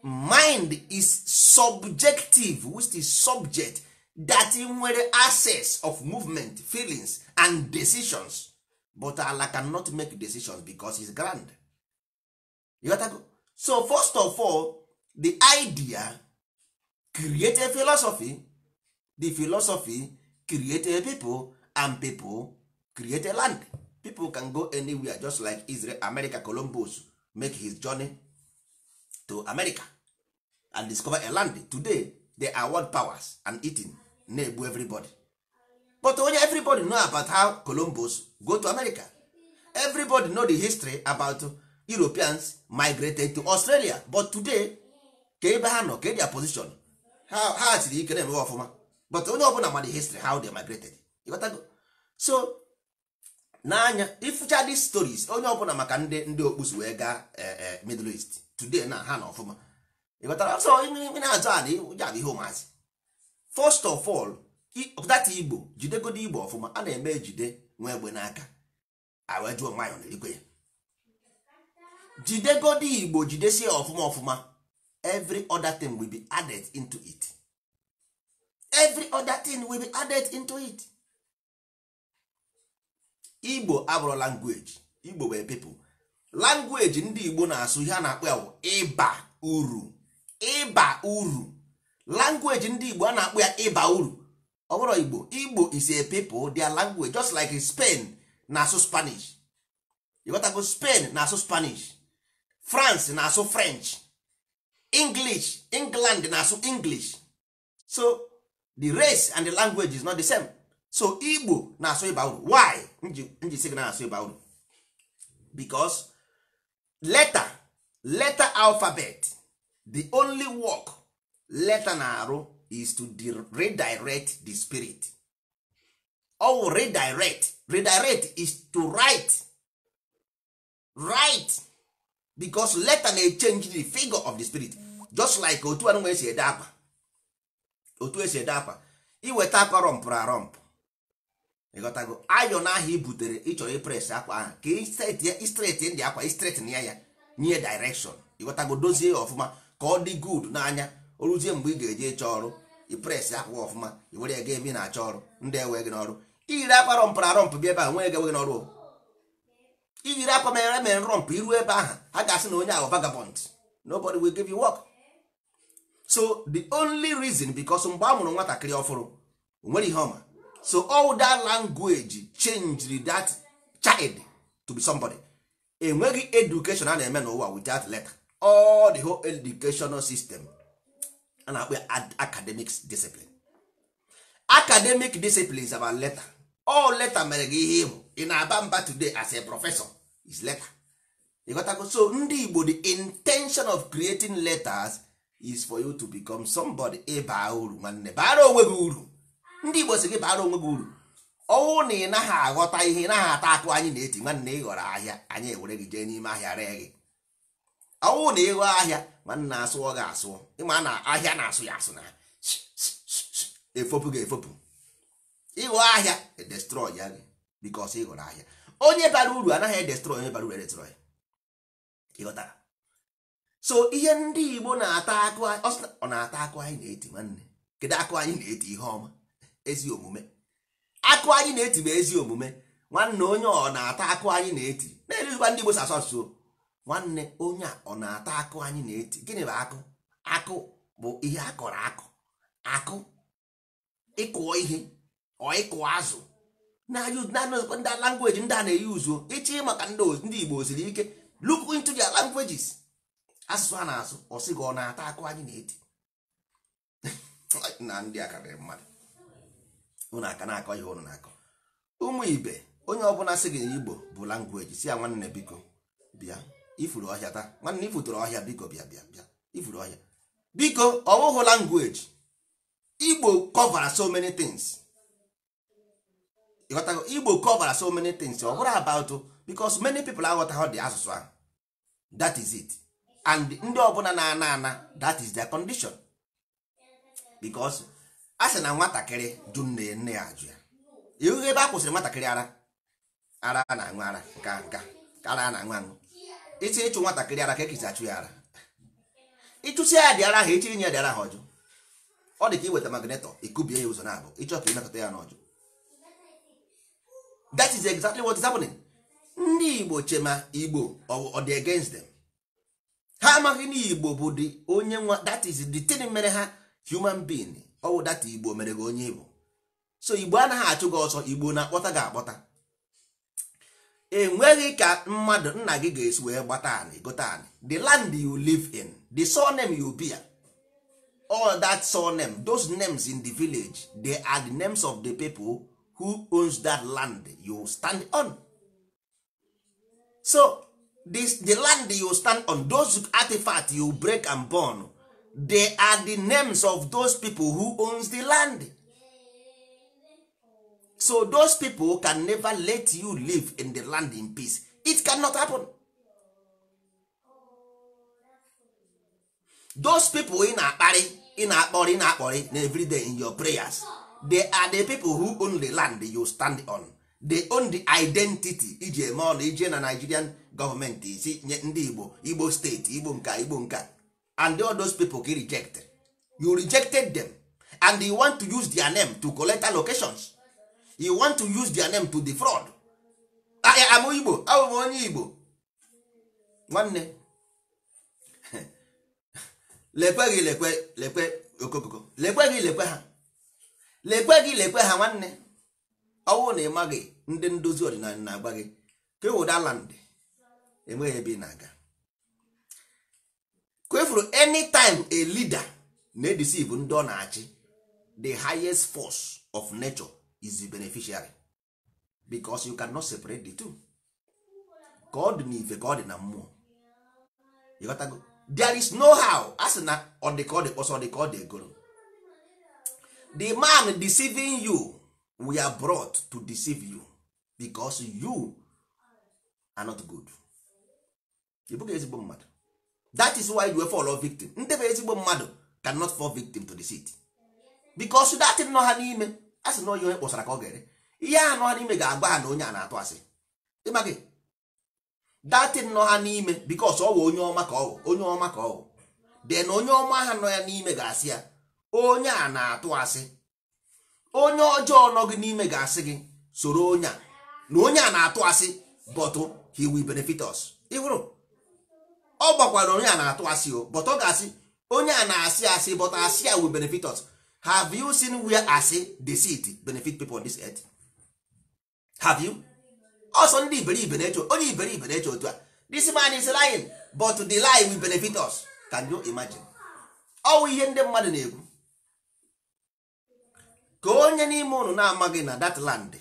mind is subjective which is subject that nwere access of movement feelings and decisions but Allah cannot make decisions because he's grand you got to go. so first of all the idea create a philosophy the philosophy create a people and people create a land people can go anywhere just like Israel America Columbus make his journey to America and discover a land today they are world powers and eating na-egbu everybody but only everybody know about how columbus go to america everybody know the history about europeans migrated to australia but today ka ebe ha nọ ka their position ha you ike na-emewe ọfụma but onye ọbụla ma the history how they migrated go? so n'anya ifucha these stories onye ọbụla maka ndị ndị okpusu wee eh, gaa eh, middle east today na ha na ọfụma ịghọtara so ị na-azụ ana ụja adịghị ụmụazị fọst of ọl data igbo jidegodo igbo ọfụma a na-eme jide ah, nwa egbe n'aka awejuo nwayọ n'elikwe ya jidegodo igbo jidesie ọfụma ọfụma every other thing will be added into it every other thing will be added into it igbo abụrụ langweji igbo wee people langweji ndị igbo na-asụ ihe a na-akpọ ya ịba uru ịba uru language ndị igbo a na-akpọ ya ịba uru ọ bụrụ igbo igbo is a people their language just like spain na-asụ spanish ịghọtago spain na-asụ spanish france na-asụ french english england na-asụ english so the race and the language is not the same so igbo na-asụ ịba uru why nji sị na-asụ ịba uru because letter letter alphabet the only work leta na-arụ is to redirect the spirit Oh, redirect redirect is to write write because letter na-echange the figure of the spirit just like otu anụnwa esi ede akpa otu esi ede akpa iweta akwa rọmpụrụ rọmpụ ịghọtago ayọn ahụ i butere ịchọrọ ipres akwa ahụ ka istret ndị akwa istret na ya ya nye direction ịghọtago dozie ya ọfụma ka ọ dị good n'anya o ruzie mgbe ị ga-eji ịchọ ọrụ i pres akwụkwọ ọfụma iwere were ego ebe ị na-achọ ọrụ ndị ewe gị n'ọrụ iyiri akwa rọmpụrụ arọmpụ bịa ebe a nwee egewe gị n'ọrụ iyiri akwa mere mere rọmpụ iruo ebe ahụ ha ga-asị na onye ahụ vagabond nobody will give you work so the only reason because mgbe a mụrụ nwatakịrị ọfụrụ nwere ihe ọma so all that language changed that child to be somebody enweghị education a na-eme n'ụwa without letter all the whole educational system a na-akpọ academic discipline academic discipline is about letter all letter mere gị ihe ịbụ ị na-aba mba today as a professor is letter ịghọtago so ndị Igbo the intention of creating letters is for you to become somebody ịba uru nwanne bara onwe gị uru ndị Igbo si gị bara onwe gị uru ọnwụ na ị naghị aghọta ihe ị naghị ata akụ anyị na-eti nwanne ị ghọrọ ahịa anyị ewere gị jee n'ime ahịa ree ọnwụ na ịghọ ahịa ma nna asụọ gị asụọ ịma na ahịa na-asụ ya asụ na efopụ gị efopụ ịghọ ahịa edestrọị ya gị bikọs ịghọrọ ahịa onye bara uru anaghị edestrọị onye bara uru edestrọị ịghọtara so ihe ndị Igbo na-ata akụ ọ na-ata akụ anyị na-eti nwanne kedu akụ anyị na-eti ihe ọma ezi omume akụ anyị na-eti bụ ezi omume nwanne onye ọ na-ata akụ anyị na-eti na-eruzikwa ndị Igbo sasọ nsuo nwanne onye a ọ na-ata akụ anyị na-eti gịnị bụ akụ akụ bụ ihe akọrọ akụ akụ ịkụọ ihe ọ ịkụọ azụ ndị langweji ndị a na-eyi uzuo ịchị maka ndị Igbo osiri ike look into their languages asụsụ a na-asụ ọ sị gị ọ na-ata akụ anyị na-eti <laughs> na ndị akarịrị mmadụ ụnụ aka na-akọ ihe ụnụ na-akọ ụmụ ibe onye ọbụla sị gị na Igbo bụ langweji si ya nwanne biko bịa ifuru ọhịa taa nwanne ifuturu ọhịa biko bịa bịa bịa ifuru ọhịa biko ọ bụghị language igbo cover so many things igbo cover so many things ọ bụrụ about because many people aghọtaghị dị asụsụ ahụ that is it and ndị ọbụla na-ana ana that is their condition because a sị na nwatakịrị jụ nne nne ya ajụ ya ihu ebe a kwụsịrị nwatakịrị ara ara na-aṅụ ara nka nka ara na-aṅụ aṅụ iti ịchụ nwatakịrị ara ka ekisi achụ ya ara ịchụsi ya dị ara ha echiri nye ya dị ha ọjọ ọ dị ka iweta magnetọ ikubie ya ụzọ na-abụ ịchọ ka ịnakọta ya n'ọjọ that is exactly what is happening ndị igbo chema igbo ọ dị against them ha amaghị na igbo bụ dị onye nwa that is the thing mere ha human being ọ data igbo mere gị onye igbo so igbo anaghị achụ gị ọsọ igbo na-akpọta gị akpọta enweghị ka mmadụ nna gị ga-esi wee gbata anị anị the land you live in the surname you bear all that surname those names in the village they are the names of the people who owns that land you stand on so this, the land you stand on those artifacts you break and burn they are the names of those people who owns the land so those people can never let you live in the land in peace it cannot happen those people in na akpari in ị akpori in na-akpọrị na everyday in your prayers they are the people who own the land you stand on they own the identity iji ije na nigerian government. isi nye ndị igbo igbo steeti igbo nka igbo nka and all those people ka rejected. you rejected them and you want to use their name to collect allocations you want to use their name to defraud amụ ah, eh, igbo abụ ah, m oh, onye igbo nwanne <laughs> lekwe gị lekwe lekwe okokoko lekwe gị lekwe ha lekwe gị lekwe ha nwanne ọnwụ na ịma gị ndị ndozi ọdịnala na-agba gị ka ewuda land enweghị ebe ị na-aga kwefuru time a leader na-edisive ndị ọ na-achị the highest force of nature is the beneficiary because you cannot separate the two god ọ dị god ka ọ dị na mmụọ there is no how as sị na ọ dị ka ọ dị kpọsọ dị egoro the man deceiving you we are brought to deceive you because you are not good ezigbo mmadụ that is why you were fall victim ndị bụ ezigbo mmadụ cannot fall victim to the city because that nọ ha n'ime a sị na onye kpọsara ka ọ ga-ere ihe a nọ n'ime ga-agba ha na onye a na-atụ asị ịma gị datin nọ ha n'ime bikos ọ wụ onye ọma ka ọ onye ọma ka ọ de na onye ọma ha nọ ya n'ime ga-asị ya onye a na-atụ asị onye ọjọọ nọ gị n'ime ga-asị gị soro onye a na onye a na-atụ asị bọtụ he will benefit ịhụrụ ọ gbakwara onye a na-atụ asị o bọtụ ọ ga-asị onye a na-asị asị bọtụ asị ya will benefit have you seen where asị deceit benefit people on this earth have you also ndị iberibe na-eche onye iberibe na-eche otu a this man is lying but the lie will benefit us can you imagine ọwụ ihe ndị mmadụ na-ekwu ka onye n'ime ụnụ na-amaghị na that land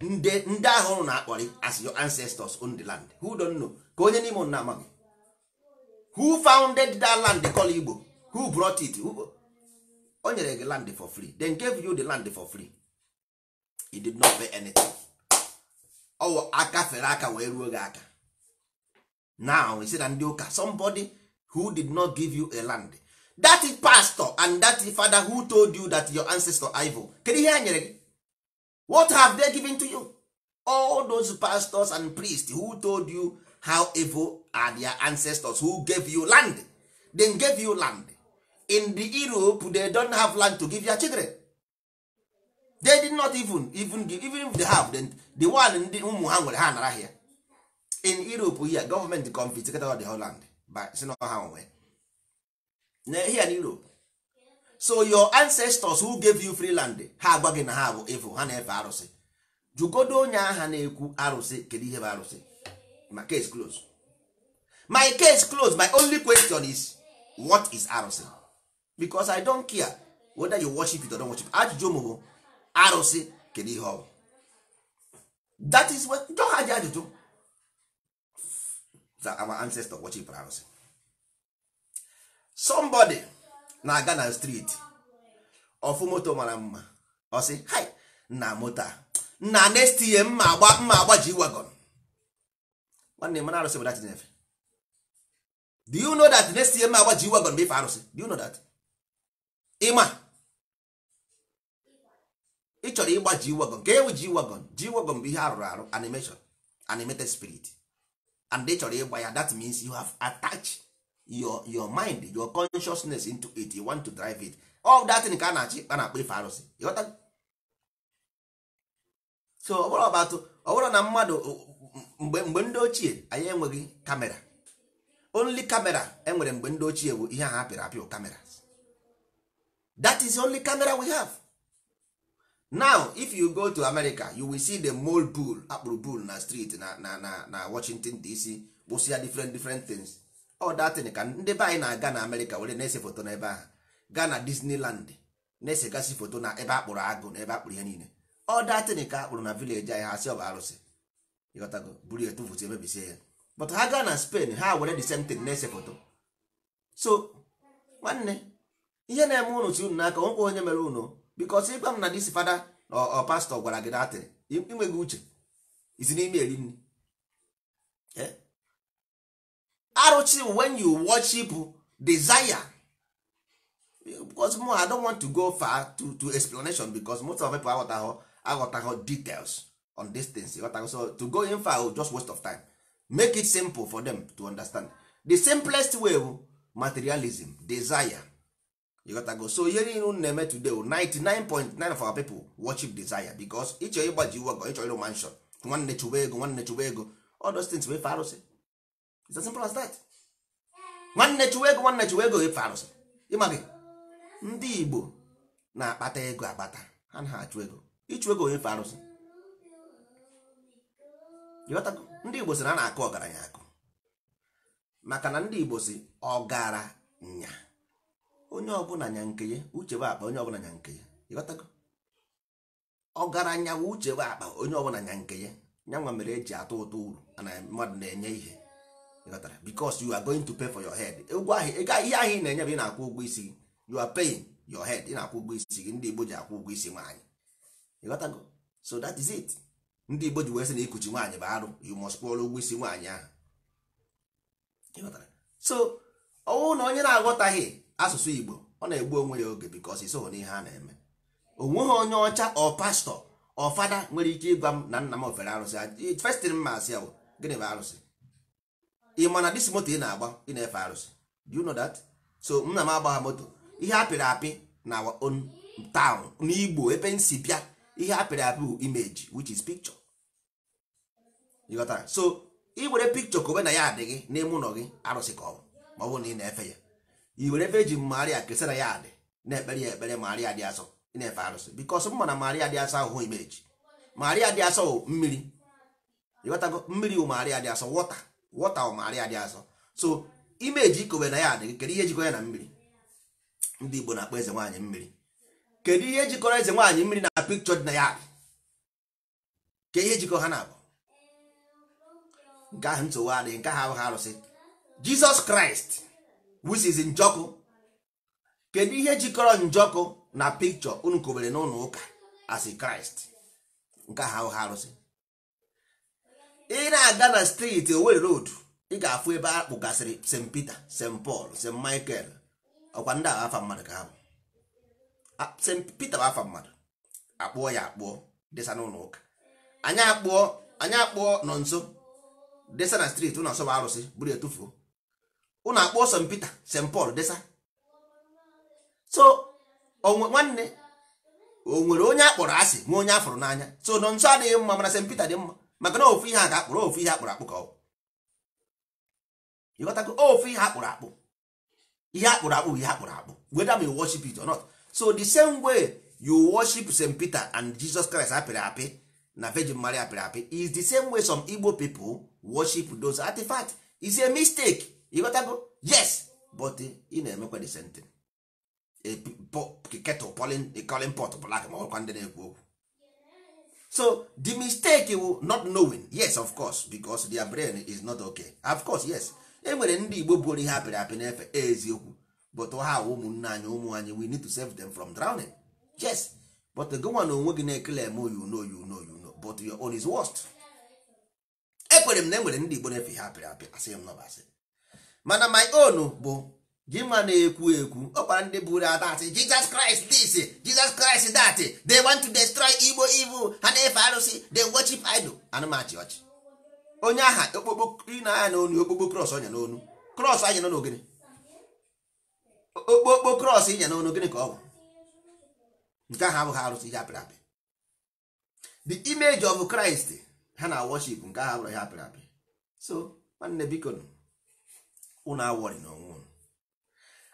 ndị ahụ ụnụ na-akpọrị as your ancestors on the land who don't know ka onye n'ime ụnụ na-amaghị who founded that land call Igbo who brought it who o nyere gị land for free then gave you the land for free he did not pay anything ọwụ aka fere aka wee ruo gị aka now he said na ndị ụka somebody who did not give you a land that is pastor and that is father who told you that your ancestor ivo kedu ihe hear nyere gị what have they given to you all those pastors and priests who told you how evil are their ancestors who gave you land then gave you land in the europe they don't have land to give their children they did not even even give, even if they have then the one ndị ụmụ ha nwere ha nara here in europe here government confiscated the whole land by si na ha onwe here in europe so your ancestors who gave you free land ha agwa gị na ha bụ evo ha na-efe arụsị jugodo onye agha na-ekwu arụsị kedu ihe bụ arụsị my case close my case close my only question is what is arụsị because i don't care whether you worship it or don't worship it. ajụjụ m arụsị kedu ihe ọ that is what jọha ji ajụjụ that our ancestor worship arụsị somebody na-aga na street ofu moto mara mma ọ sị hi na moto na next year mma agba mma agba ji wagon nwanne mana arụsị bụ dat nefe do you know that next year mma agba ji wagon bụ ife arụsị do you know that ịma ị chọrọ ịgba ji wagon ka ewu ji wagon ji wagon bụ ihe arụrụ arụ animation animated spirit and ị chọrọ ịgba ya that means you have attached your your mind your consciousness into it you want to drive it all that thing ka a na-achị a na-akpọ ife arụsị ịghọta so ọ bụrụ ọbatụ ọ bụrụ na mmadụ mgbe mgbe ndị ochie anyị enweghị kamera only kamera enwere mgbe ndị ochie bụ ihe ahụ apịrị apịụ kamera that is the only camera we have now if you go to america you will see the mole bull akpụrụ bull na street na na na na washington dc gbụsịa different different things all that thing ka ndị be anyị na-aga na america were na-ese foto n'ebe ahụ gaa na disneyland na-esegasị foto na ebe akpụrụ agụ na ebe akpụrụ ihe niile all that thing ka akpụrụ na village anyị ha si ọ bụ arụsị ịghọtago buru etu foto emebisie ya but ha gaa na spain ha were the same thing na-ese foto so nwanne ihe na-eme unu si unu n'aka nwekwa onye mere unu bikos ịgwa m na dis fada na ọ pastọ gwara gị datịrị inweghị uche isi n'ime eri nri eh? arụchi when you worship desire because mo i don't want to go far to, to explanation because most of people aghọtaghọ aghọtaghọ details on this things aghọtaghọ so to go in far will just waste of time make it simple for them to understand the simplest way materialism desire you got to go so ihe niile unu na-eme today 99.9 for our people worship desire because ịchọ ịgbaji iwu ọgọ ịchọ ịrụ mansion nwanne chụwa ego nwanne chụwa ego all those things wefe arụsị it's as simple as that nwanne chụwa ego nwanne chụwa ego efe arụsị ịmaghị ndị Igbo na-akpata ego akpata ha na achụ ego ịchụ ego efe arụsị ndị Igbo sị na a na-akụ ọgaranya akụ maka na ndị Igbo si ọgaranya onye ọbụla nya nke ya uche bụ akpa onye ọbụla nya nke ya ịghọtago ọgaranya bụ uche bụ akpa onye ọbụla nya nke ya nyanwa mere eji atụ ụtụ uru na mmadụ na-enye ihe ịghọtara because you are going to pay for your head ụgwọ ahụ ihe ahịa ị na-enye bụ ị na-akwụ ụgwọ isi gị you are paying your head ị na-akwụ ụgwọ isi gị ndị Igbo ji akwụ ụgwọ isi nwaanyị ịghọtago so that is it ndị Igbo ji wee sị na ikuchi nwaanyị bụ arụ you must kwụọrọ ụgwọ isi nwaanyị ahụ ịghọtara so ọnwụ na onye na-aghọtaghị asụsụ igbo ọ na-egbu onwe ya oge because iso n'ihe a na-eme onweghị onye ọcha ọ pastọ ọ fada nwere ike ịgwa m na nna m ofere arụsị festin mma asị ya gịnị bụ arụsị ị ma na dis moto ị na-agba ị na-efe arụsị do you know that so nna m agbagha moto ihe apịrị apị na on n'igbo ebe m si bịa ihe apịrị apị bụ image which is picture so ị were picture kobe na ya adịghị n'ime ụlọ gị arụsị ka ọ bụ ma ọ bụrụ na ị na-efe ya i were ebe eji maria kesara ya adị na-ekpere ya ekpere maria dị asọ na-efe arụsị bikos m mana maria dị asọ ahụhụ imeji maria dị asọ mmiri ịghọtago mmiri wụ maria dị asọ wọta wọta wụ maria dị asọ so imeji ikowe na ya adị e, kedu ihe jikọrọ ya na mmiri ndị igbo na-akpọ eze nwaanyị mmiri kedu ihe jikọrọ eze nwaanyị mmiri na pikchọ dị na ya adị ka ihe jikọ ha na-abụ nke ahụ nsogbu adịghị nke ahụ abụghị arụsị jizọs kraịst which is njọkụ kedu ihe jikọrọ njọkụ na pikchọ unu kobere n'ụlọ ụka as kraịst nke ha ha arụsị ị na-aga na steeti Owerri road ị ga-afụ ebe a gasịrị st peter st paul st michael ọkwa ndị agha afa mmadụ ka ha bụ st peter bụ afa mmadụ akpụọ ya akpụọ desa n'ụlọ ụka anyị akpụọ anyị akpụọ nọ nso desa na steeti ụlọ nsọ bụ arụsị buru etufuo ụnụ akpọ St Peter St Paul desa so nwanne o nwere onye akpọrọ asị nwe onye afọrọ n'anya so nọ nso adịghị mma mana St Peter dị mma maka na ofu ihe a ga-akpụrụ ofu ihe akpụrụ akpụ ka ọ ịghọtago ofu ihe akpụrụ akpụ ihe akpụrụ akpụ ihe akpụrụ akpụ whether we worship it or not so the same way you worship St Peter and Jesus Christ apịrị apị na Virgin Mary apịrị apị is the same way some Igbo people worship those artifacts is a mistake yes but ị na-emekwa the same thing pot ma ndi ndị na-ekwu okwu so the mistake will not knowing yes of course because their brain is not okay of course yes ndị igbo buoro ihe apịrị eziokwu but ha ụmụnne anyị ụmụ anyị we need to save them from drowning yes but gụnwa na onwe gị na-ekele eme you know you know you know but your own is worst ekwere m na enwere ndị igbo na-efe ihe apịrị apị asị m nọbasị mana my own bụ gị ma na-ekwu ekwu ọkwara ndị buru ata asị Jesus Christ this Jesus kraịst that they want to destroy Igbo evil ha na-efe arụsị they worship idol anụmachi ọchị onye aha okpokpo na anya n'onu okpokpo cross ọnya n'onu cross anya n'onu gịnị okpokpo cross ịnya n'onu gịnị ka ọ bụ nke ahụ abụghị arụsị ihe apịrị apị the image of Christ ha na worship nke ahụ abụrụ ihe apịrị apị so nwanne biko unu awọrị na onwe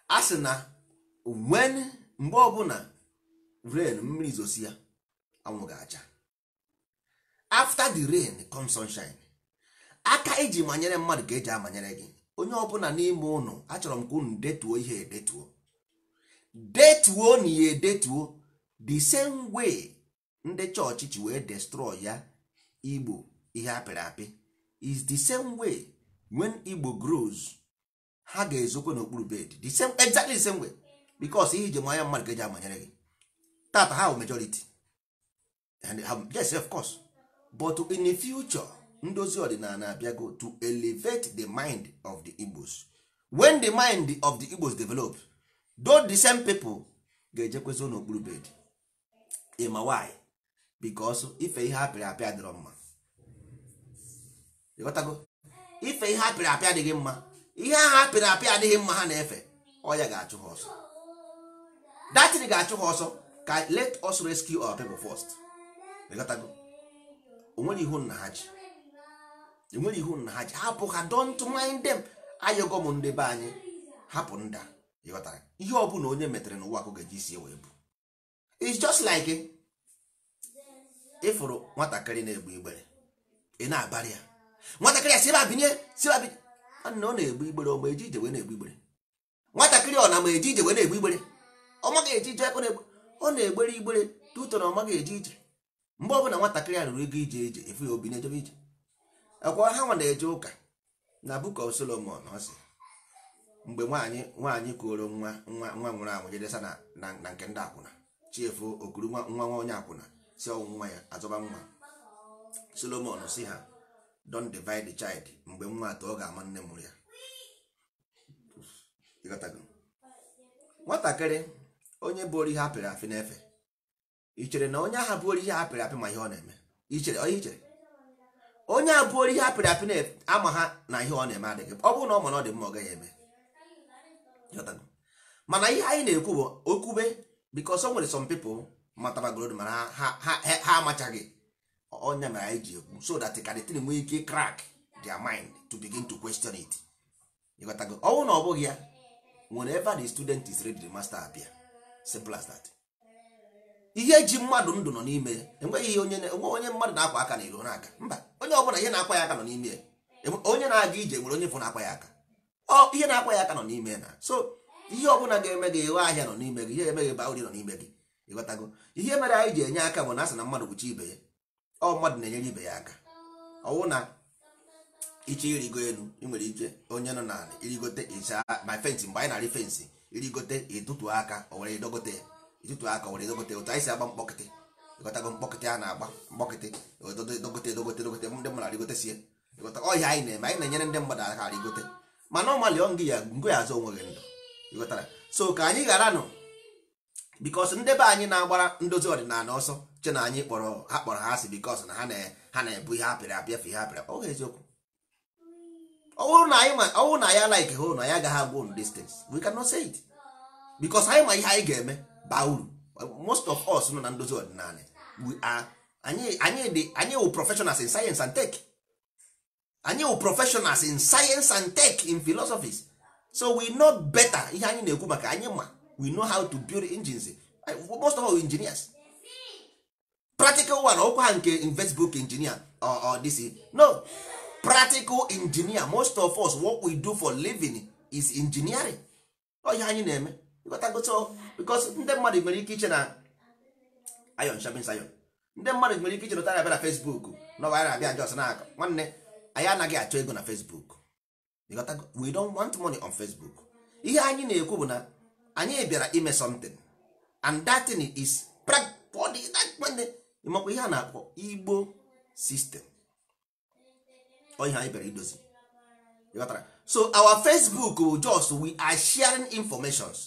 a sị na wen mgbe ọbụla rain mmiri zosi ya anwụ ga-acha after the rain comes sunshine aka iji e manyere mmadụ ka eji amanyere gị onye ọbụla n'ime ụnụ achọrọ m ka unu detuo ihe edetuo detuo na ihe edetuo the same way ndị chọọchị ji wee destroy ya igbo ihe apịrị apị is the same way when igbo grows ha ga-ezokwe n'okpuru bed the same exactly the same way because ihe ije manya mmadụ ga-eji amanyere gị tata ha bụ majority and um, yes of course but in the future ndozi ọdịnala abịago to elevate the mind of the igbos when the mind of the igbos develop though the same people ga-ejekwezo n'okpuru bed ma why because ife ihe apịrị apịa dịrọ mma ife ihe apịrị apịa adịghị mma ihe ahụ apịrị apị adịghị mma ha na-efe ọya ga-achụ ha ọsọ datin ga-achụ ha ọsọ ka let us rescue our people first onwere ihu nna ha ji enwere ihu nna ha ji hapụ ha don't mind them ayọgọ m ndị be anyị hapụ nda ịghọtara ihe ọ bụla onye metere n'ụwa ka ọ ga-eji sie wee bụ it's just like ịfụrụ nwatakịrị na egbu igbere ị na-abarị ya nwatakịrị a si ebe a binye si ebe a binye nna ọ na-egbu igbere ọ ma eji ije wee na-egbu igbere nwatakịrị ọ na ma eji ije wee na-egbu igbere ọ maghị eji ije ọ na-egbere igbere na ọ maghị eji ije mgbe ọbụla nwatakịrị a rụrụ ego ije ije efu ya obi na-ejebe ije akwa ha nwa na-eje ụka na Book of Solomon ọ mgbe nwaanyị nwaanyị kuoro nwa nwa nwa nwụrụ anwụ jedesa na nke ndị akwụna chiefu okuru nwa nwa onye akwụna si ọnwụ nwa ya azọba nwa Solomon si ha don divide the child mgbe nwa atọ ọ ga-ama nne mụrụ ya nwatakịrị onye bụ orihe apịrị apị na-efe ichere na onye ahụ bụ orihe apịrị apị ma ihe ọ na-eme ichere onye ichere onye a bụ orihe apịrị apị na-ama ha na ihe ọ na-eme adịghị ọ bụrụ na ọ ma na ọ dị mma ọ gaghị eme mana ihe anyị na-ekwu bụ okwube because o nwere some people matara gold mana ha amachaghị onya mere anyị ji ekwu so that kadịtin nwee ike crack their mind to begin to question it ịghọtago ọnwụ na ọ bụghị ya whenever the student is ready the master abịa. simple as that ihe ji mmadụ ndụ nọ n'ime ya enweghị ihe onye onye mmadụ na-akwa aka na iro na aka mba onye ọbụla ihe na-akwa ya aka nọ n'ime ya onye na-aga ije nwere onye bụ na-akwa ya aka ọ ihe na-akwa ya aka nọ n'ime na so ihe ọbụla ga-eme gị ịwe ahịa nọ n'ime gị ihe emeghị ba nọ n'ime gị ịghọtago ihe mere anyị ji enye aka bụ na asị na mmadụ kwuchi ibe ya ọ mmadụ na-enyere ibe ya aka ọwụ na iche irigo elu ị nwere ike onye nọ n'ala irigote ịcha na mgbe anyị na-arị irigote ịtụtụ aka o were edogote ya ịtụtụ aka o were edogote otu anyị si agba mkpọkịtị ịghọtago mkpọkịtị a na-agba mkpọkịtị edogote edogote edogote ndị mmadụ arịgotesie ịghọta ọhịa anyị na-eme anyị na-enyere ndị mmadụ aka arịgote mana ọmalị ọ ngị ya ngụ ya azụ onweghị ndụ ịghọtara so ka anyị ghara nụ bikos ndebe be anyị na-agbara ndozi ọdịnala ọsọ che na anyị kpọrọ ha kpọrọ ha asị bikos na ha na-ebu ihe apịrị apịa fe ihe apịrị eziokwu na na agaghị say it bikos anyị ma ihe anyị ga-eme baa uru most of us nọ na ndozi ọdịnala we are anyị wụ professionals in science and tech anyị wụ professionals in science and tech in philosophies so we know better ihe anyị na-ekwu maka anyị ma we know how to build engines most of all engineers practical one ọkwa ha nke investbook engineer or this no practical engineer most of us what we do for living is engineering oye anyị na-eme because ndị mmadụ nwere ike iche na ayon shabin sayon ndị mmadụ nwere ike iche nụtara abịa na facebook na anyị na-abịa jos na akụ nwanne anyị anaghị achọ ego na facebook we don't want money on facebook ihe anyị na-ekwu bụ na anyị bịara ime something and that thing is practical ịmakwa ihe a na-akpọ igbo sistem ọhịa anyị bịara idozi so our facebook bụ just we are sharing informations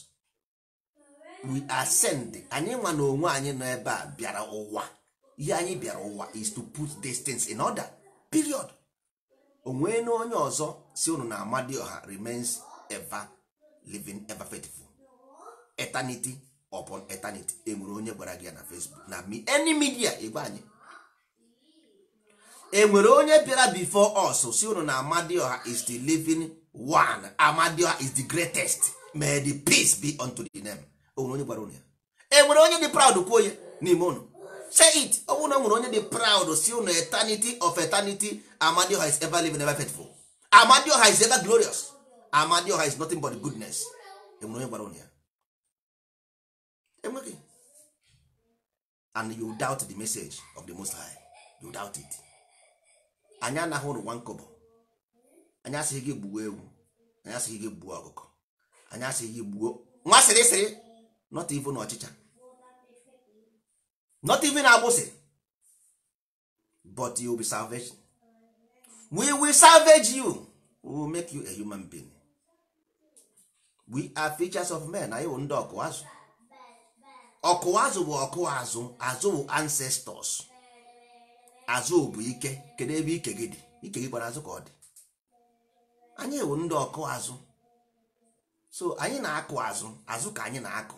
we are sending anyị nwa na onwe anyị nọ ebe a bịara ụwa ihe anyị bịara ụwa is to put distance in order period onwe na onye ọzọ si unu na amadioha remains ever living ever faithful eternity upon eternity enwere onye gwara gị ya na facebook na any media igwe anyị enwere onye bịara before us si unu na amadioha is the living one amadioha is the greatest may the peace be unto the name onwere onye gwara unu ya enwere onye dị proud kwuo ya n'ime unu say it ọ bụrụ na nwere onye dị proud si unu eternity of eternity amadioha is ever living ever faithful amadioha is ever glorious amadioha is nothing but goodness enwere onye gwara ya enweghị and you doubt the message of the most high you doubt it anyị anaghị ụrụ nwa nkọbọ anyị asịghị gị gbuo ewu anyị asịghị gị gbuo ọkụkọ anyị asịghị gị gbuo nwa sịrịsịrị not even ọchịcha not even agbụsị but you will be salvation we will salvage you we will make you a human being we are features of men na wụ ndị ọkụ azụ ọkụwa azụ bụ ọkụwa azụ azụ bụ ancestors azụ bụ ike kedu ebe ike gị dị ike gị gbara azụ ka ọ dị anyị ewu ndị ọkụ azụ so anyị na-akụ azụ azụ ka anyị na-akụ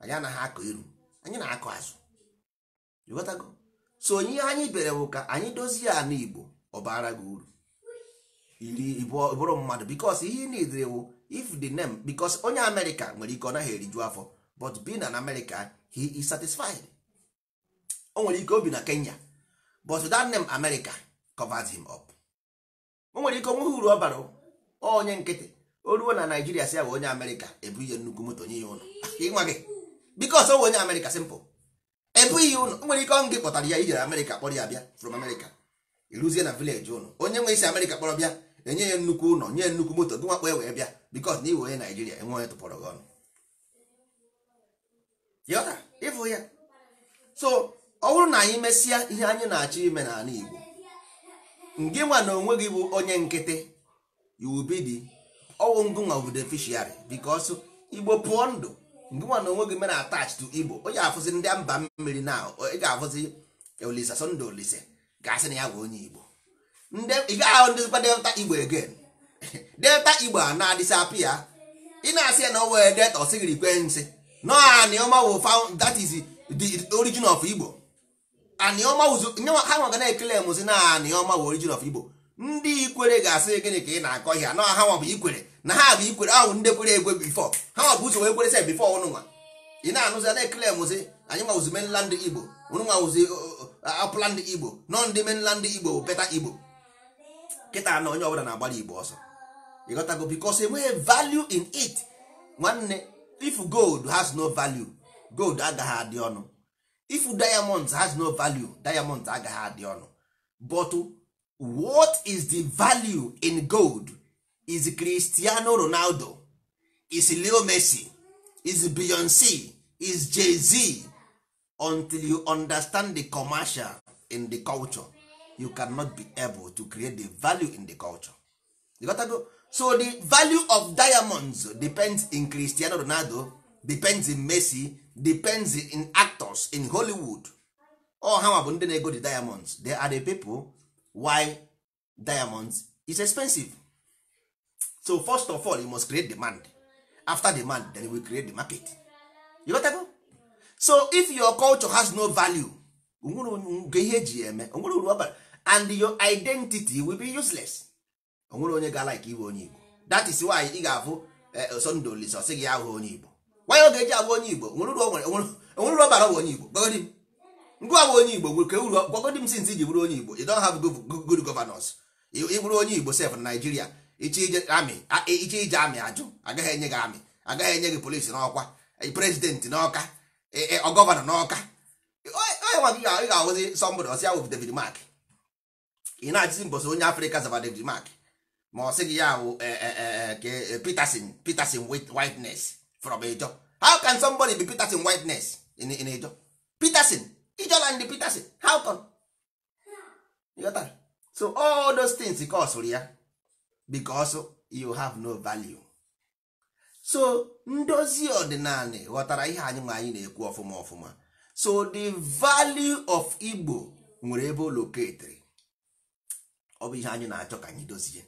anyị anaghị akụ iru anyị na-akụ azụ ịghọtago so onye anyị bere bụ ka anyị dozie ala igbo ọ bara gị uru iri bụrụ mmadụ bikos ihe ị na-edere wụ if the name bikos onye amerịka nwere ike ọ naghị eriju afọ but being an American he is satisfied o nwere ike obi na Kenya but that name America covers him up o nwere ike onweghị uru ọ bara onye nkịtị o ruo na Naijiria si ya onye America ebu ihe nnukwu moto nye ya ụlọ <laughs> ịnwa gị because o onye America simple ebu ihe ụlọ o nwere ike ọnụ gị kpọtara ya ijere America kpọrọ ya bịa from America iruzie na village ụlọ onye nwe isi America kpọrọ bịa enye ya nnukwu ụlọ nye nnukwu moto gị nwakpọ ya wee bịa because na iwe onye Naijiria enwe onye tụpọrọ gị ọnụ ịfụ ya so ọ bụrụ na anyị mesịa ihe anyị na-achọ ime n'ala Igbo ngị nwa na onwe gị bụ onye nkịtị yubidi ọwụ ngụnwa bụ beneficiary because Igbo pụọ ndụ ngị nwa na onwe gị mere attach to Igbo onye afụzi ndị mba mmiri na ị ga-afụzi Olisa Sunday Olise ga-asị na ya bụ onye Igbo ị gaghị ahụ ndịzikwa delta Igbo again <laughs> delta Igbo a na-adịsapịa ị na-asị ya na o were delta ọ sịghị ikwe nsị no anioma wụ found that is the origin of igbo ha nwaga na-ekele mụzi na anioma wụ origin of igbo ndị ikwere ga-asị gịnị ka ị na-akọ ihe na ha nwa bụ ikwere na ha bụ ikwere ahụ ndị kwere egwe bifọ ha nwa bụ ụzọ wee kwere se bifọ ọnụnwa ị na-anụzi na-ekele mụzi anyị nwawụzi mainland igbo ọnụnwa wụzi uh, uh, upland igbo nọ ndị menland igbo bụ beta igbo kịta na onye ọbụla na-agbara igbo ọsọ ịghọtago because enweghị value in it nwanne if gold has no value gold agaghị adị ọnụ if diamonds has no value diamonds agaghị adị ọnụ but what is the value in gold is cristiano ronaldo is leo messi is beyonce is jay-z until you understand the commercial in the culture you cannot be able to create the value in the culture you gotta go so the value of diamonds depends in cristiano ronaldo depends in messi depends in actors in hollywood all ha bụ ndị na-ego the diamonds they are the people why diamonds is expensive so first of all you must create demand after demand then you will create the market you got that? so if your culture has no value nwere ihe eji eme nwere uru and your identity will be useless onwere onye ga-alaiki iwe onye igbo dat is why ị ga-afụ eh, Sunday Olisa gị ahụ onye igbo nwanyị oge eji agwa onye igbo onwere uru onye igbo gwagodi onye igbo nwere ke uru gwagodi m ji bụrụ onye igbo ị don't have good governance ị onye igbo sef na Naịjirịa iche ije amị ajụ agaghị enye gị amị agaghị enye gị polisi n'ọkwa eh, prezidenti n'ọka eh, gọvanọ n'ọka onye Mark ị na onye Afrịka zaba Mark ma ọ sị gị ya wụ eh, eh, eh, peterson peterson whiteness from ejo how can somebody be peterson whiteness in, in ejo peterson ijoland peterson how come so all those things kosụrụ ya because you have no value so ndozi ọdịnala ghọtara ihe anyị ma anyị na-ekwu ọfụma ọfụma so the value of igbo nwere ebe o loketiri ọ bụ ihe anyị na-achọ ka anyị dozie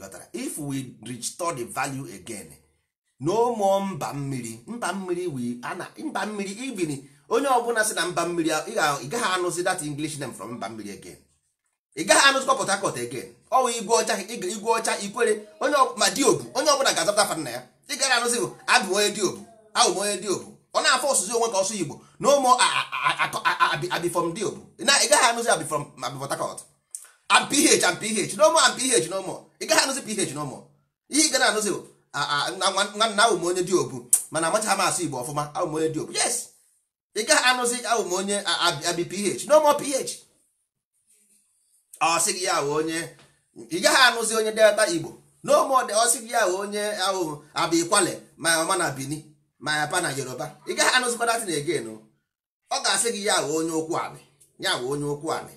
ghọtara if we restore the value again no mba mmiri mba mmiri we ana onye ọbụla si na mba mmiri ị gaghị anụzi that english name from mba mmiri again ị gaghị port harcourt again ọwụ igwe ọcha ikwere onye ma diobu onye ọbụla ga-azapụta fa na ya ị gaghị anụzi bụ abụ onye diobu abụ onye diobu ọ na-afọ ọsụzi onwe ka ọsụ igbo na ụmụ abifọm diobu ị gaghị anụzi abifọm ị gaghị anụzi ph n'ụmụ ihe ị ga na-anụzi nwanna ahụ m onye dị obu mana amachaghị m asụ igbo ọfụma ahụ m onye dị obu yes ị gaghị anụzi ahụ m onye abi ph n'ụmụ ph ọ gị ya wụ onye ị gaghị anụzi onye delta igbo n'ụmụ ọ sị gị ya wụ onye ahụ abi kwale ma ọma na bini ma yapa na yoruba ị gaghị anụzikwa datin egen ọ ga-asị gị ya wụ onye ụkwụ anị ya wụ onye ụkwụ anị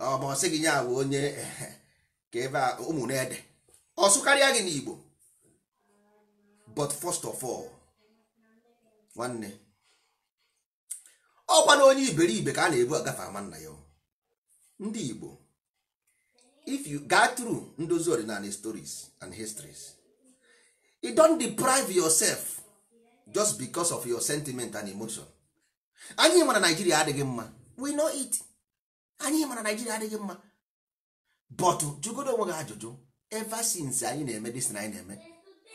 ọ ma ọ gị ya wụ onye ehe eh, ka ebe a ụmụ na-ede ọsụ karịa gị n'Igbo but first of all nwanne ọkwa na onye iberibe ka a na-ebu agafe ama nna ya ndị Igbo if you go through ndozi ọdịnala stories and histories you e don deprive yourself just because of your sentiment and emotion anyị ma na Naijiria adịghị mma we know it anyị ma na Naijiria adịghị mma but jụgodo onwe gị ajụjụ ever since anyị na-eme dis na anyị na-eme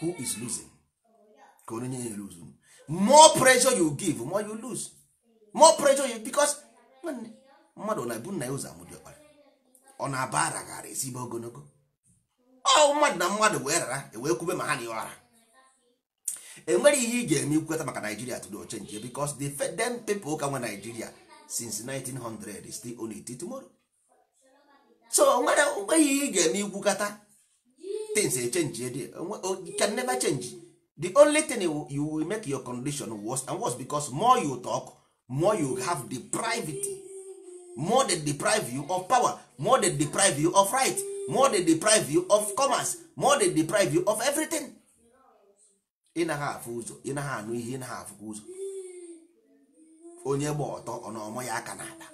who is losing ka onye nye lose more pressure you give more you lose more pressure you because mmadụ na-ebu nna ya ụzọ amụdị ọkpara ọ na-aba ara gara ezigbo ogologo ọ mmadụ na mmadụ wee rara ewee kwube ma ha na enwere ihe ị ga-eme ikweta maka Nigeria to do change because the them people ka nwe Nigeria since 1900 still only it tomorrow so nwere mgbe ihe ị ga-eme ikwukata things echenji ede uh, uh, can never change the only thing you will make your condition worse and worse because more you talk more you have deprived more they deprive you of power more they deprive you of right more they deprive you of commerce more they deprive you of everything ị naghị afụ ụzọ ị naghị anụ ihe ị naghị afụkwa ụzọ onye gba ọtọ ọnọmọ ya aka na-aba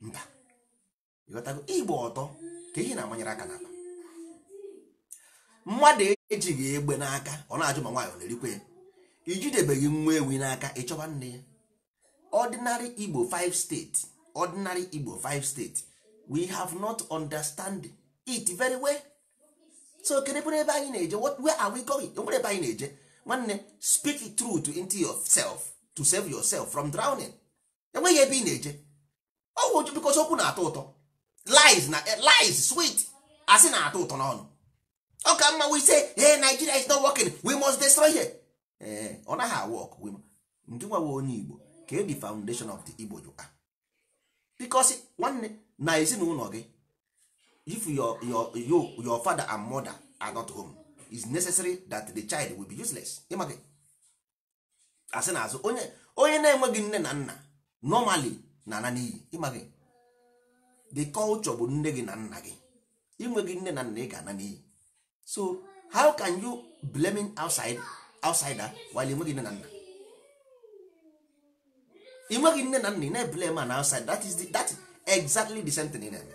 mba ịghọtago ọtọ ka ihe na-amanyere aka n'akpa mmadụ ejighị egbe n'aka ọ na-ajụ ma nwaanyị ọ na erikwa ya ijidebeghị nwa ewi n'aka ịchọba nne ya ordinary igbo 5 steeti ordinary igbo five steeti we have not understand it very well so kedebere ebe anyị na-eje where are we going ebe anyị na-eje nwanne speak truth into yourself to save yourself from drowning enweghị ebe ị na-eje ọgwụ bikọsi okwu na-atọ ụtọ lies na eh, lies sweet asị na-atọ ụtọ n'ọnụ ọ ka mma we say hey Nigeria is not working we must destroy her ee eh, ọ naghị awọk ndị nwawe onye Igbo ka the foundation of the Igbo jụka because nwanne na ezinụlọ gị if your your your your father and mother are not home it's necessary that the child will be useless ịma asị na azụ onye onye na-enweghị nne na nna normally na ana n'iyi ịma the culture bụ nne gị na nna gị inweghị nne na nna ị ga-ana n'iyi so how can you blaming outside outsider while inweghị nne na nna inweghị nne na nna ị na eblem an outside that is the, that is exactly the same thing ị na-eme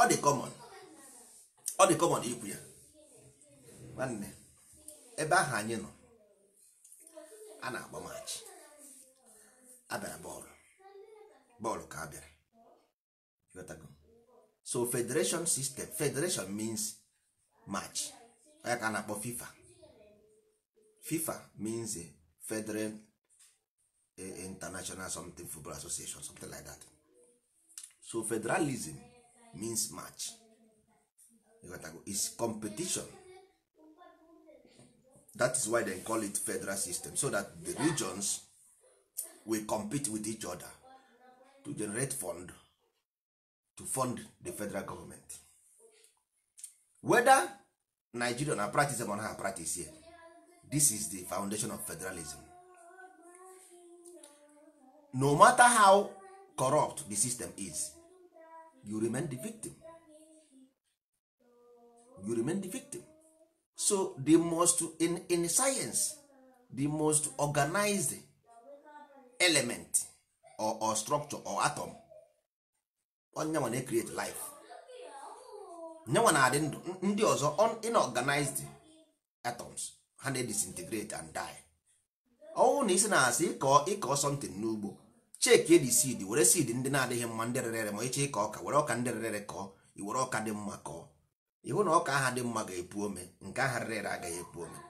ọ dị common ọ dị common ikwu ya nwanne ebe ahụ anyị nọ a na-agba maachị abịara bọọlụ bọọlụ ka abịara so federation system federation means match onye ka a na-akpọ fifa fifa means a federal eh, international something football association something like that so federalism means match is competition that is why they call it federal system so that the regions will compete with each other to generate fund to fund the federal government whether nigeria na practice or na practice here this is the foundation of federalism no matter how corrupt the system is you remain the victim you remain the victim so the most in, in science the most organized element or, or structure or atom onyenwa na create life nyenwa na-adị ndụ ndị ọzọ inorganized atoms ha na disintegrate and die ọnwụ na isi na-asị ịkọ ịkọ something n'ugbo cheki edi seed were seed ndị na-adịghị mma ndị rere ma ịchị ịkọ ọka were ọka ndị rere kọọ iwere ọka dị mma kọọ iwu na ọka aha dị mma ga-epu ome nke aha rere agaghị epu ome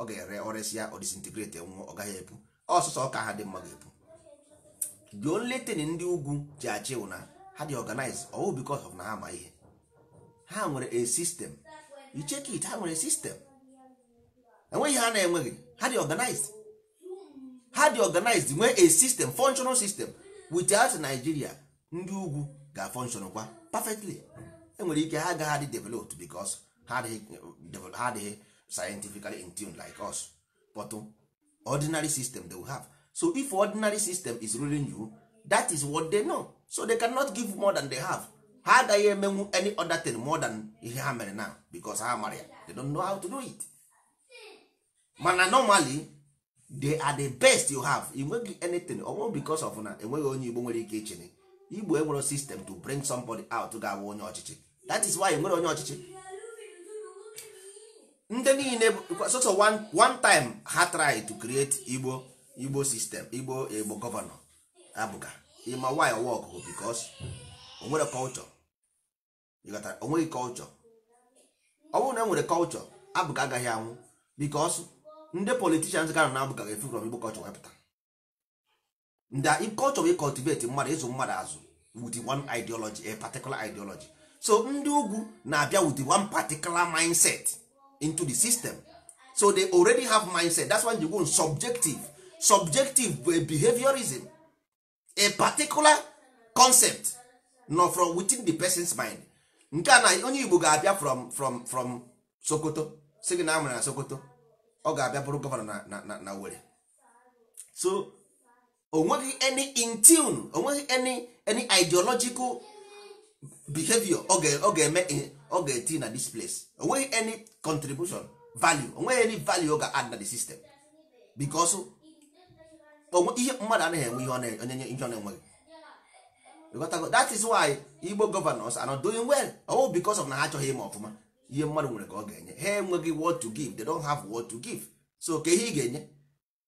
ọ ga-ere ọrịsịa ọ disintegrate nwụọ ọ gaghị epu ọsụsọ ọka aha dị mma ga-epu juo nletin ndị ugwu ji achị na ha dị organize ọwụ because of na ha ma ihe ha nwere a system icheki it ha nwere system enweghị ha na-enweghị ha dị organized ha dị organized nwee a system functional system without Nigeria ndị ugwu ga-functional kwa perfectly enwere ike ha agaghị adị developed because ha adịghị scientifically in tune like us but ordinary system they will have so if ordinary system is ruling you that is what they know so they cannot give more than they have ha agaghị emenwu any other thing more than ihe ha mere now because ha mara ya they don't know how to do it mana normally they are the best you have enweghị anything ọnwụ because of na enweghị onye igbo nwere ike ichene igbo enwere system to bring somebody out ga-abụ onye ọchịchị that is why nwere onye ọchịchị ndị niile so one time ha try to create igbo igbo system igbo igbo gọvanọ abụga ịma why work bụ because onwere culture onweghị culture ọ bụrụ na enwere culture abụga agaghị anwụ because ndị politicians ga na abụga ga-efu from igbo culture wepụta ndị culture wey cultivate mmadụ ịzụ mmadụ azụ with one ideology a particular ideology so ndị ugwu na-abịa with one particular mindset into the system so they already have mindset that's why you go subjective subjective bụ behaviorism a particular concept nọ from within the person's mind nke a na onye igbo ga-abịa from from from sokoto si na amụrụ na sokoto ọ ga-abịa bụrụ gọvanọ na na na were so onweghị any in tune onweghị any any ideological behavior ọ ga-eme eh, ọ ga-eti na this place onweghị any contribution value onweghị any value ọ ga-add na the system because ihe mmadụ anaghị enwe ihe onyenye ihe ọ na-enweghị that is why igbo governors are not doing well ọwụ because of na ha achọghị ime ọfụma ihe mmadụ nwere ka ọ ga-enye ha enweghị what to give they don't have what to give so ka ihe ị ga-enye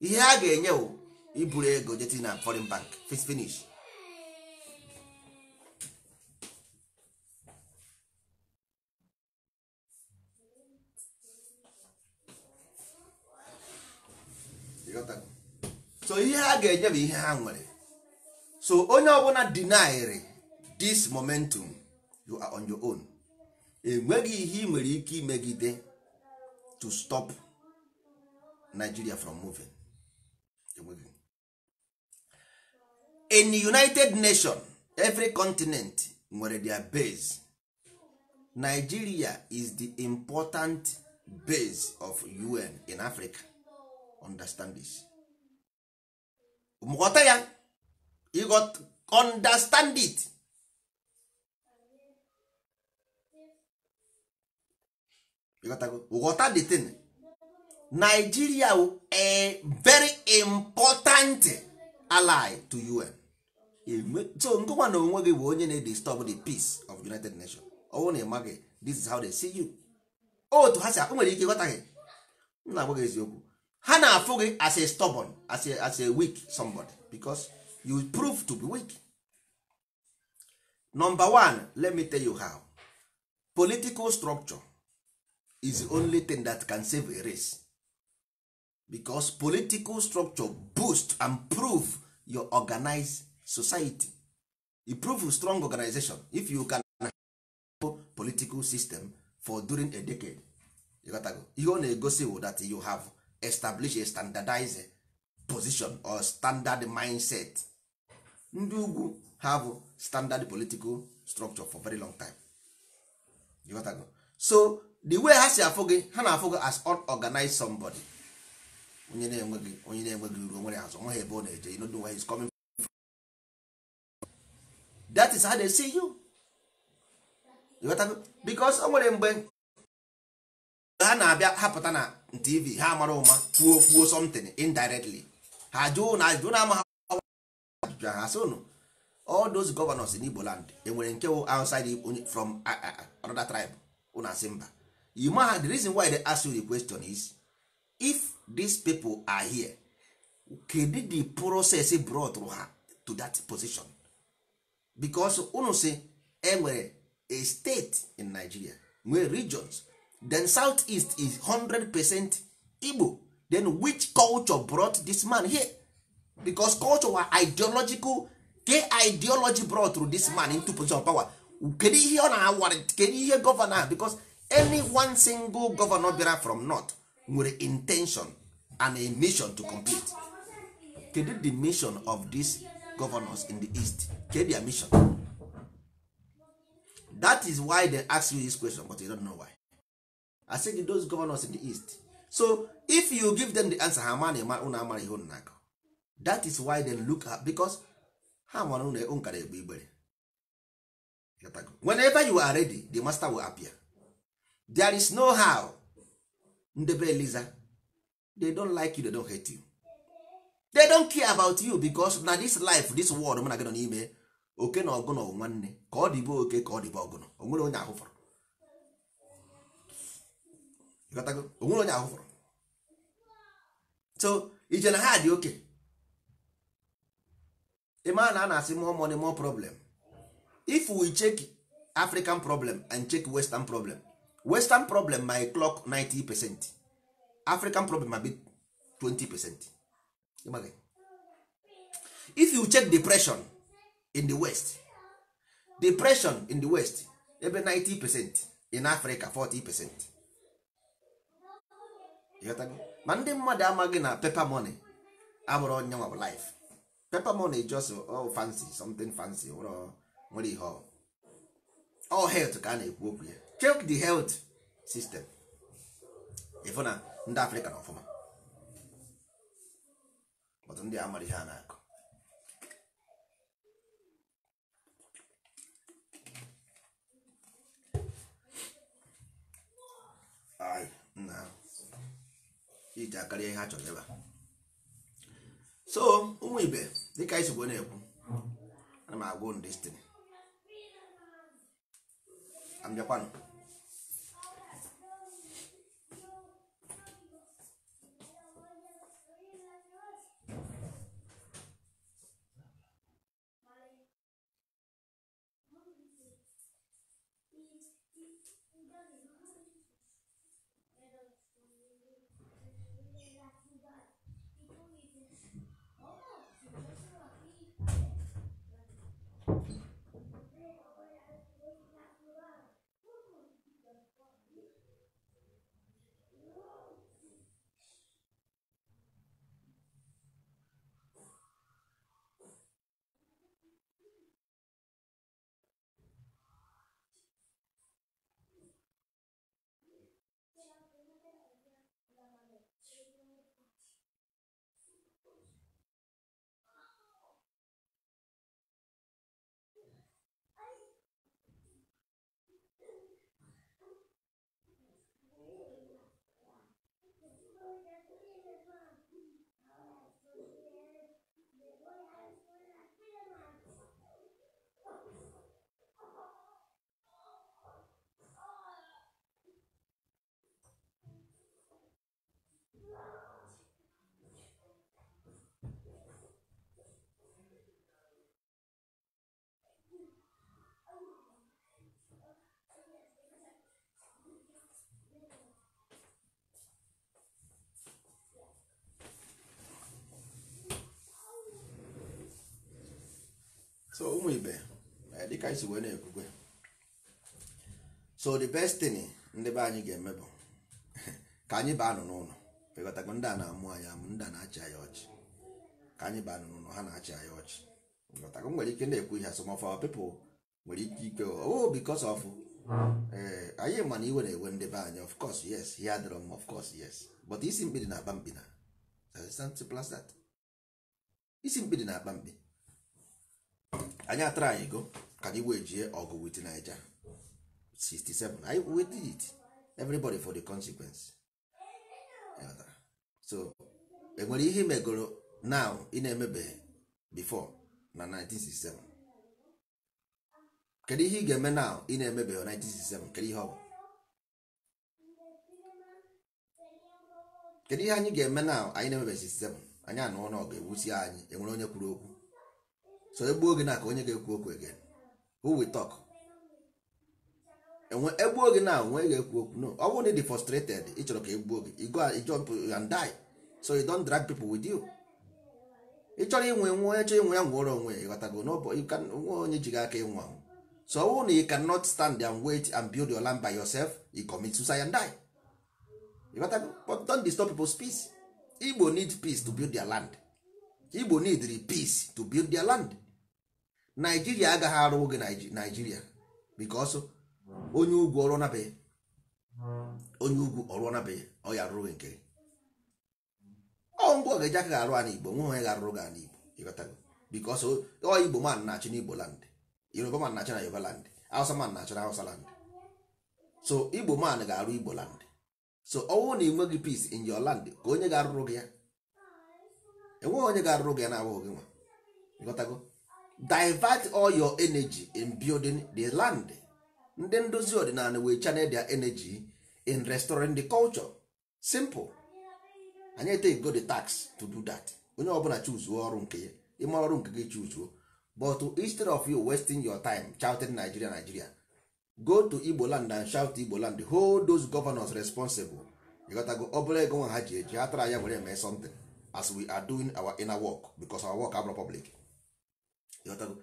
ihe ha ga-enye bụ iburu ego jeti na foreign bank finish so ihe ha ga-enye bụ ihe ha nwere so onye ọbụla dinairi this momentum you are on your own enweghị ihe ị nwere ike imegide to stop Nigeria from moving in the United Nations every continent nwere their base Nigeria is the important base of UN in Africa understand this ghọta ya understand it ghọta the thing Nigeria a very important ally to UN so nkụkwa na onwe gị bụ onye na-disturb the peace of United Nations ọnwụ na ịma gị this is how they see you otu oh, ha si nwere ike ịghọta gị m na-agwa gị eziokwu ha na-afụ gị as a stubborn as a, as a weak somebody because you prove to be weak number one let me tell you how political structure is the only thing that can save a race because political structure boost and prove your organized society You prove strong organization if you can political system for during a decade You got ihe ọ na-egosi that you have establish a standardized position or standard mindset ndị ugwu have standard political structure for very long time you got go. so the way ha si afụ gị ha na-afụ gị as unorganized somebody onye na-enweghị onye na-enweghị uru onwere azụ nweghị ebe ọ na-eje you know the way he's coming from. that is how they see you. you got go. because o nwere mgbe ha na-abịa hapụta na tv ha mara ụma kwuo kwuo something indirectly ha jụụ na ajụjụ ajụjụ ha sị ụnụ all those governors in Igbo land enwere nke wụ outside from another tribe ụnụ asị mba you ma the reason why they ask you the question is if these people are here kedu the process brought ha to that position because ụnụ sị enwere a state in Nigeria nwee regions then southeast is 100% igbo then which culture brought this man here because culture were ideological ke ideology brought through this man into position of power kedu ihe ọ na-awara kedu ihe gọvanọ because any one single governor bịara from north nwere intention and a mission to complete kedu the mission of these governors in the east kedu their mission that is why they ask you this question but you don't know why I asị those governors in the east so if you give them the answer ha ma unu amara ihe unu na-akọ is why they look at because ha mara unu nkara egbe igbere whenever you are ready the master will appear there is no how ndebe eliza they don't like you they don't hate you they don't care about you because na this life this world mụ na gị nọ n'ime oke na ọgụnọ nwanne ka ọ dịbe oke ka ọ dịbe ọgụnọ o nwere onye ahụ fọrọ ịghọtago onye ahụ fọrọ so ije na ha dị oke ịma na a na-asị more money more problem if we check african problem and check western problem western problem might clock 90 percent african problem might be 20 percent if you check depression in the west depression in the west ebe 90 percent in africa 40 percent ịghọtago ma ndị mmadụ amaghị na pepa mone abụrụ onye nwa life pepa mone just all oh, fancy something fancy nwere ihe all health ka a na-ekwu okwu ya check the health system ịfụ na ndị afrịka na ọfụma ọtụ ndị amara ihe a na-akụ Ai, não. iji akarịa ihe ha chọrọ ebe a so ụmụ ibe dịka anyị sogbo na-ekwu ana m ndị unu destin abịakwanụ so ụmụ ibe dịka anyị wee na-ekwukwe so the best thing ndị be anyị ga-eme bụ <laughs> ka anyị baa nụ n'ụlọ pekọtakwa ndị a na-amụ anyị amụ ndị a na-achị anyị ọchị ka anyị baa nụ n'ụlọ ha na-achị anyị ọchị pekọtakwa nwere ike na-ekwu ihe some of our people nwere ike ike oh because of hmm. ee eh, anyị ma iwe na-ewe ndị be anyị of course yes ihe adịrọ m of course yes but isi mkpidi na-akpa mkpi na isi mkpidi na-akpa mkpi anyị atara ego ka anyị wee jie ọgụ wit Naija 67 anyị did it everybody for the consequence so enwere ihe megoro now ị na-emebeghị before na 1967 kedu ihe ị ga-eme now ị na-emebeghị 1967 kedu ihe ọ bụ kedu ihe anyị ga-eme now anyị na-emebeghị 67 anyị anọ n'ọgụ ewusi anyị enwere onye kwuru okwu so egbuo gị na ka onye ga-ekwu okwu again who we talk enwe egbuo gị na onwe ga-ekwu okwu no ọ bụrụ na frustrated ị chọrọ ka egbuo gị go jump and die so you don't drag people with you ị chọrọ inwe nwe onye inwe ya nwụọrọ onwe ịghọtago nwe onye ji gị aka ịnwụ anwụ so ọ bụrụ na you cannot stand and wait and build your land by yourself you commit suicide and die Igbo need peace to build their land igbo needri peace to build their land naijiria agaghị arụ oge naijiria because onye ugwu ọrụ nabeghị onye ugwu ọrụ nabeghị ọ ya rụrụ nke ọ ngwa ga-eji aka ga-arụ ana igbo nwe onye ga-arụrụ gị ana igbo ịghọtago because ọ igbo man na-achị n'igbo land yoruba man na-achị na yoruba land hausa man na-achị na hausa land so igbo man ga-arụ igbo land so ọnwụ na enweghị peace in your land ka onye ga-arụrụ gị ya enweghị onye ga-arụrụ gị na-abụghị nwa ịghọtago divert all your energy in building the land ndị ndozi ọdịnala wee channel their energy in restoring the culture simple anyị take go the tax to do that onye ọbụla chuzuo ọrụ nke ya ịma ọrụ nke gị chuzuo but instead of you wasting your time shouting Nigeria Nigeria go to Igbo land and shout Igbo land hold those governors responsible ịghọtago ọ bụla ego nwa ha ji eji ha tara ya were eme something as we are doing our inner work because our work abụrụ public anyị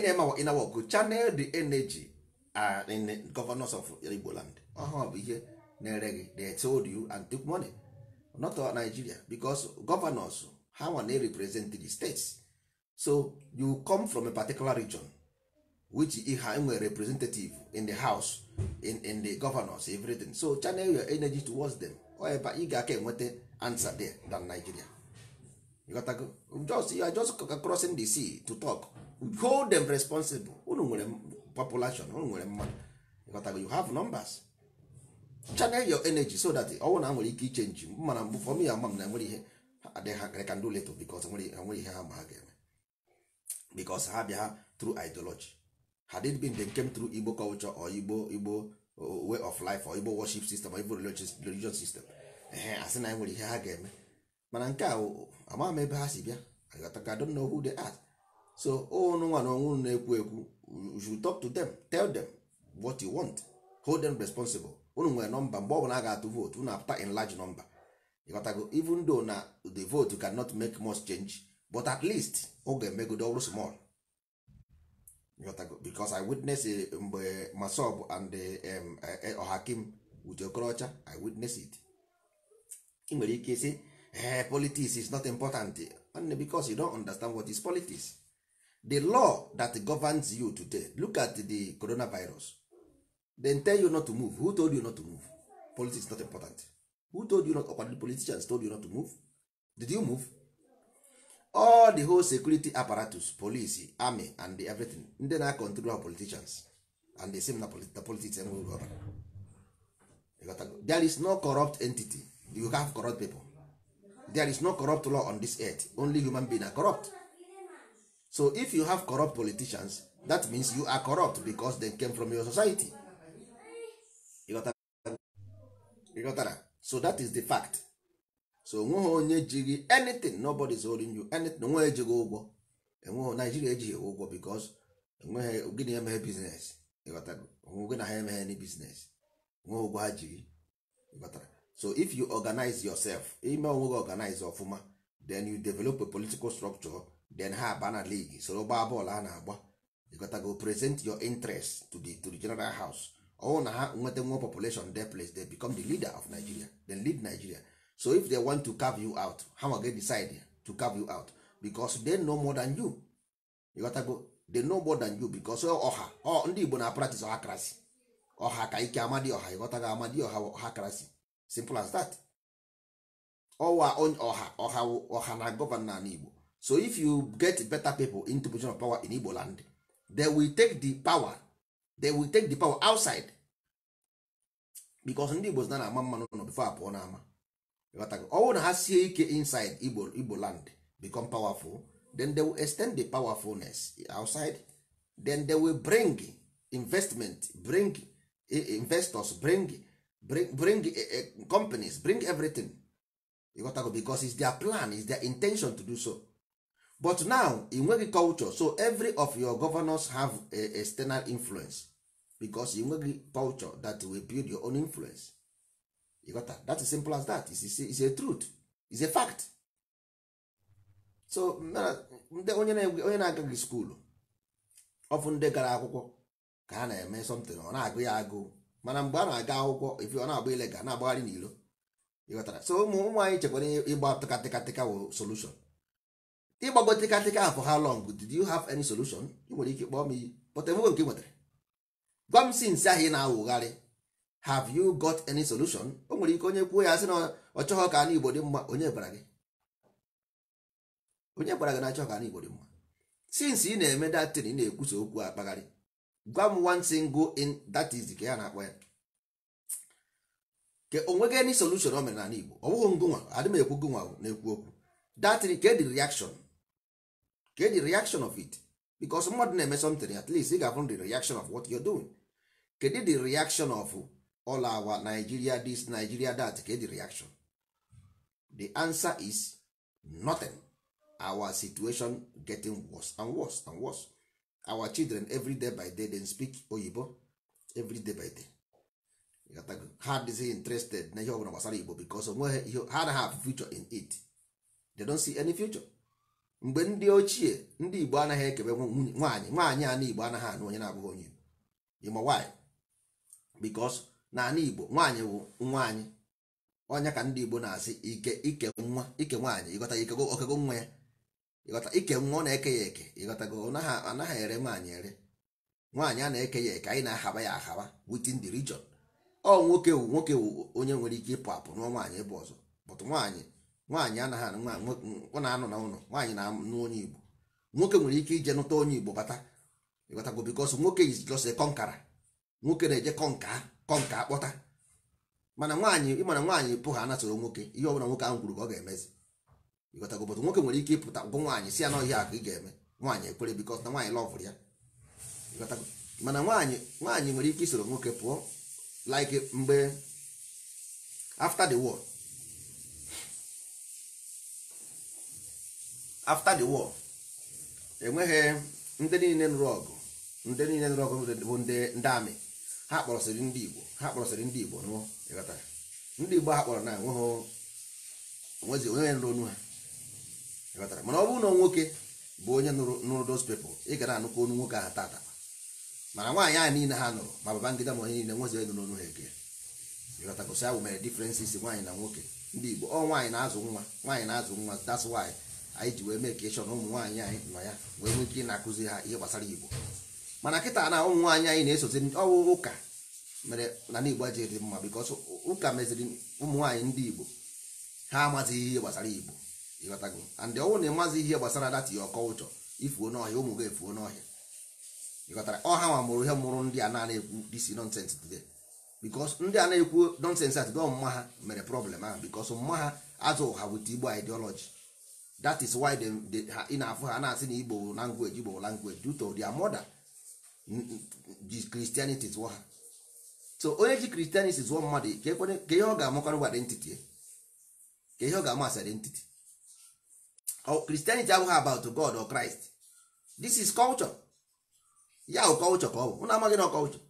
na-eme our inner work channel the energy uh, in governors of Igbo land ọhụụ bụ ihe na-ere gị they told you and took money not all Nigeria because governors ha a na represent the states so you come from a particular region which ha nwere representative in the house in, in the governors everything so channel your energy towards them ọ ebe ị ga-aka enweta answer there than Nigeria just you are just crossing the sea to talk hold them responsible unu nwere population unu nwere mmadụ you have numbers channel your energy so that ọnwụ na nwere ike ichenji mana mbụ fọm ya ama m na enwere ihe adịghị ka ndị leto bikos nwere ihe ha ma ha ga-eme bikos ha bịa tru ideology had it been they came through igbo culture or igbo igbo uh, way of life or igbo worship system or igbo religious system asị na nwere ihe ha ga-eme mana nke oh, a amaghị m ebe ha si bịa agataka don know who they are so ụnụ nwa na ọnwụ na-ekwu ekwu you should talk to them tell them what you want hold them responsible ụnụ nwere nọmba mgbe ọ bụla a ga-atụ vootu ụnụ apụta in large number ịghọtago even though na the vote cannot make much change but at least ọ ga-emegodo ọrụ small ịghọtago because I witness eh, mgbe Masob and Ọhakim eh, eh, with Okorocha I witness it ị nwere ike sị Eh, politics is not important because you don't understand what is politics the law that governs you today look at the coronavirus then tell you not to move who told you not to move politics is not important who told you not or the politicians told you not to move did you move all the whole security apparatus police army and the everything ndị na control our politicians and the same na the politics there is no corrupt entity you have corrupt people there is no corrupt law on this earth only human being are corrupt so if you have corrupt politicians that means you are corrupt because they came from your society ịghọtara so that is the fact so onweghị onye jighị anything nobody is holding you anything onweghị ejighị ụgwọ enweghị naijiria ejighị ụgwọ because enweghị gịnị emeghe biznes onwe gị na ha emeghe any biznes onweghị ụgwọ ha jiri ịghọtara so if you organize yourself ime onwe gị organize ọfụma then you develop a political structure then ha aba na league soro gbaa bọọlụ a na-agba ịgotago present your interest to the, to the general house ọwụ na ha nweta nwa population they place they become the leader of nigeria then lead nigeria so if they want to carve you out how are they decide to carve you out because they know more than you ịgotago they know more than you because ọha ndị igbo na practice ọha krasi ọha ka ike amadi ọha ịghọtago amadi ọha ọha krasi simple as that ọwa ọha ọha ọha na gọvanọ ala igbo so if you get better people into position of power in igbo land they will take the power they will take the power outside because ndị igbo na a ama mmanụ nọ before apụọ n'ama ọwụ na ha sie ike inside igbo igbo land become powerful then they will extend the powerfulness outside then they will bring investment bring eh, investors bring bring, bring the, uh, eh, companies bring everything ịghọtago bicos is their plan is their intention to do so but now ị nweghị culture so every of your governors have a external influence because ị nweghị culture that will build your own influence ịghọta that is simple as that is is a truth is a fact so ndị onye na-agaghị skuulu ọfụ ndị gara akwụkwọ ka ha na-eme something ọ na-agụ ya agụụ mana mgbe a na-aga akwụkwọ ifi ọ na-agba ilega na-agbagharị n'ilo ịghọtara so ụmụ ụmụ anyị chekwara ịgba tịkatịkatịka wụ solushon ịgbago tịkatịka afọ ha long did you have any solution ị nwere ike kpọọ m iyi pụta enwego nke nwetara gwa m si nsị ahụ ị na-awụgharị have you got any solution o nwere ike onye kwuo ya sị na ọ chọghọ ka ana igbo dị mma onye gwara gị onye gwara gị na achọghọ ka ana igbo dị mma since ị na-eme datin ị na-ekwusa okwu akpagharị gwa m one single in that is ka ya na-akpọ ya ke onweghị any solution o mere n'ala Igbo ọ bụghị ngụnwa m ekwu gụnwa na-ekwu okwu that ke reaction ke reaction of it because mmadụ na-eme something at least ị ga-afụ the reaction of what you're doing kedụ the reaction of all our Nigeria this Nigeria that ke reaction the answer is nothing our situation getting worse and worse and worse our children every day by day they speak oyibo every day by day ha dịghị interested na ihe ọbụla gbasara igbo because onweghị ihe ha anaghị have future in it they don't see any future mgbe ndị ochie ndị igbo anaghị ekebe nwaanyị nwaanyị ana igbo anaghị anụ onye na-abụghị onye igbo ịma why because na ana igbo nwaanyị bụ nwaanyị onye ka ndị igbo na-asị ike ike nwa ike nwaanyị ịghọta ike okego nwa ya ịghọta ike nwa ọ na-eke ya eke ịghọtago anaghị ere nwaanyị ere nwaanyị a na-eke ya eke anyị na-ahaba ya ahaba within the region ọ nwoke wu nwoke wu onye nwere ike ịpụ apụ nụọ nwaanyị ebe ọzọ bụtụ nwaanyị nwaanyị anaghị ọ na-anọ na ụlọ nwaanyị na-anụ onye Igbo nwoke nwere ike ije nụta onye Igbo bata ịghọtago bikos nwoke izijose kọnkara nwoke na-eje kọnka kọnka kpọta. mana nwaanyị ịmana nwaanyị pụ ha anasoro nwoke ihe ọbụla nwoke ahụ kwuru ka ọ ga-emezi ịghọtago obodo nwoke nwere ike ịpụta ngwụ nwaanyị si ya na ọhịa ka ị ga-eme nwaanyị ekwere bikọs na nwaanyị lọvụrụ ya ịghọtago mana nwaanyị nwaanyị nwere ike isoro nwoke pụọ like mgbe after the war after the war enweghị ndị niile nụrụ ọgụ ndị niile nụrụ ọgụ bụ ndị amị ha kpọrọsịrị ndị igbo ha kpọrọsịrị ndị igbo nụọ ịghọtara ndị igbo ha kpọrọ na enweghị onye nụrụ onu ha mana ọ bụrụ na nwoke bụ onye nụrụ those people ị gara anụkọ onu nwoke ahụ tata mana nwaanyị ahụ niile ha nụrụ ma baba ngịda ma onye niile nwezi nụrụ onu ha ege ịghọtagosi awụ mere differences nwaanyị na nwoke ndị Igbo ọ nwaanyị na-azụ nwa nwaanyị na-azụ nwa that's why anyị ji wee mee ka ịchọ na ụmụ nwaanyị anyị nọ ya wee nwee ike ịna akụzi ha ihe gbasara Igbo mana kịta na ụmụ nwaanyị anyị na-esozi ọwụ ụka mere na n'Igbo ajiri dị mma because ụka meziri ụmụ nwaanyị ndị Igbo ha amazighị ihe gbasara Igbo ịghọtago and ọnwụ na ịmazi ihe gbasara data ya ọkọụchọ ifuo n'ọhịa ụmụ gị efuo n'ọhịa ịghọtara ọha nwa mụrụ ihe mụrụ ndị a na-ekwu disi nonsens today bikos ndị a na-ekwu nonsens atide ọmụma ha mere problem ahụ bikos mma ha azụ ha wit igbo ideology that is why ị na-afụ ha na-asị na igbo language igbo language due to their mother christianity zụọ ha so onye ji christianity zụọ mmadụ ka ihe ọ ga-amakọrọ identity ka ihe ọ ga-amasị identity oh, Christianity abụghị about God or Christ this is culture ya oh, culture ka ọ bụ ụnụ amaghị na culture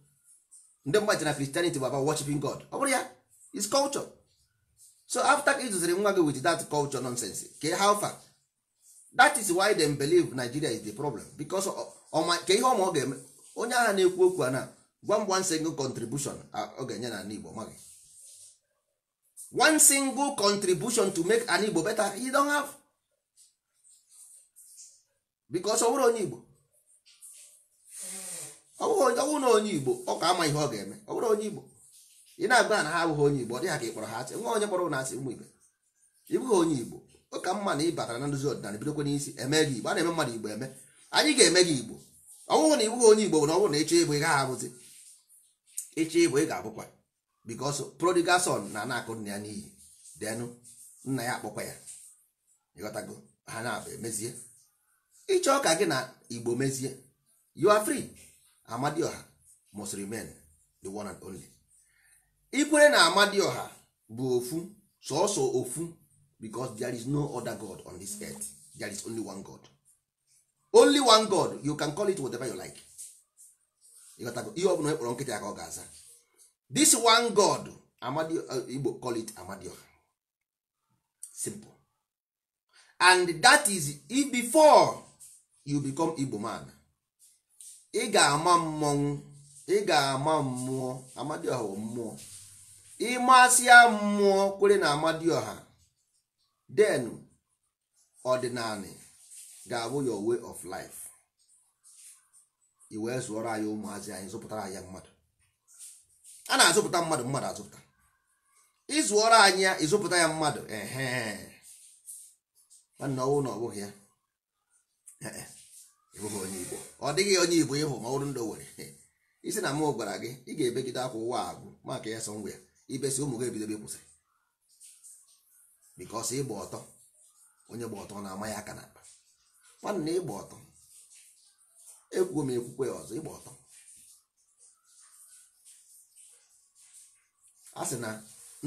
ndị mmadụ na Christianity bụ about worshiping God ọ bụrụ ya is culture so after ka ịzụziri nwa gị with that culture nonsense ke how far that is why them believe Nigeria is the problem because ka ihe ọma ọ ga-eme onye agha na-ekwu okwu a na gwa one single contribution ọ ga-enye na Igbo maghị one single contribution to make an Igbo better you don't have because ọ onye Igbo ọ na onye Igbo ọ ka ama ihe ọ ga-eme ọ bụrụ onye Igbo ị na-agba na ha abụghị onye Igbo ọ dịghị ka ị kpọrọ ha asị nwa onye kpọrọ na asị ụmụ Igbo ịbụghị onye Igbo ọ ka mma na ị batara na nduzi ọdịnala bidokwa n'isi eme gị Igbo a na-eme mmadụ Igbo eme anyị ga-eme gị Igbo ọ na ịbụghị onye Igbo bụ na ọ bụrụ na ịchọ ịbụ ị gaghị abụzi ịchọ ịbụ ị ga-abụkwa because prodigal na na-akụ nna ya n'iyi denụ nna ya akpọkwa ya ịghọtago ha na-abụ emezie ịchọ ka gị na igbo mezie you are free amadioha must remain the one and only ikwere na amadioha bụ ofu sọọsọ ofu because there is no other god on this earth there is only one god only one god you can call it whatever you like ihe ọbụla ekpọrọ nkịtị ka ọ ga-aza this one god uh, igbo call it amadioha simple and that is before you become igbo man ị ga-ama mmọnwụ ị ga-ama mmụọ amadioha mmụọ ịmasịa mmụọ kwere na amadioha then ọdịnala ga-abụ your way of life i wee zụọrọ anyị ụmụazị anyị zụpụtara anyị mmadụ a na-azụpụta mmadụ mmadụ azụpụta ịzụọrọ anyị ya ịzụpụta ya mmadụ ehe nwanne ọnwụ na ọ bụghị ya ịbụghị onye igbo ọ dịghị onye igbo ịhụ ma ọrụ ndị nwere, isi na mụ gwara gị ị ga-ebegide akwa ụwa agwụ maka ya sọ ngwa ya ibesi ụmụ gị ebidobe kwụsịrị bikọs ịgba ọtọ onye gba ọtọ na-ama ya aka nwanne na ịgba ọtọ ekwuo m ekwukwe ya ọzọ ịgba ọtọ a sị na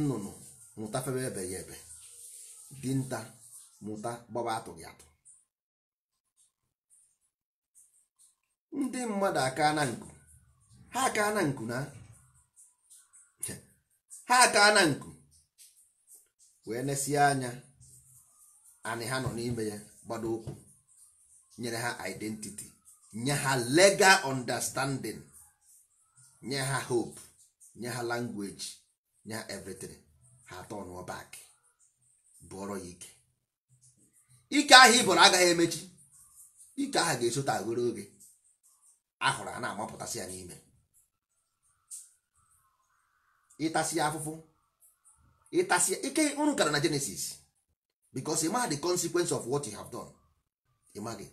nnụnụ mụta febe ebe ya ebe dinta mụta gbaba atụghị atụ ndị mmadụ aka na nku ha aka na nku na ha aka na nku wee nesie anya anyị ha nọ n'ime ya gbado ụkwụ nyere ha identity nye ha legal understanding nye ha hope nye ha language nye ha everything ha atọ n'ọbak bụọrọ ya ike ike ahụ ị bụrụ agaghị emechi ike ahụ ga-esota agoro oge ahụrụ a na-amapụtasị ya n'ime ịtasị afụfụ ịtasị ike unu gara na Genesis because ịma the consequence of what you have done ịmaghị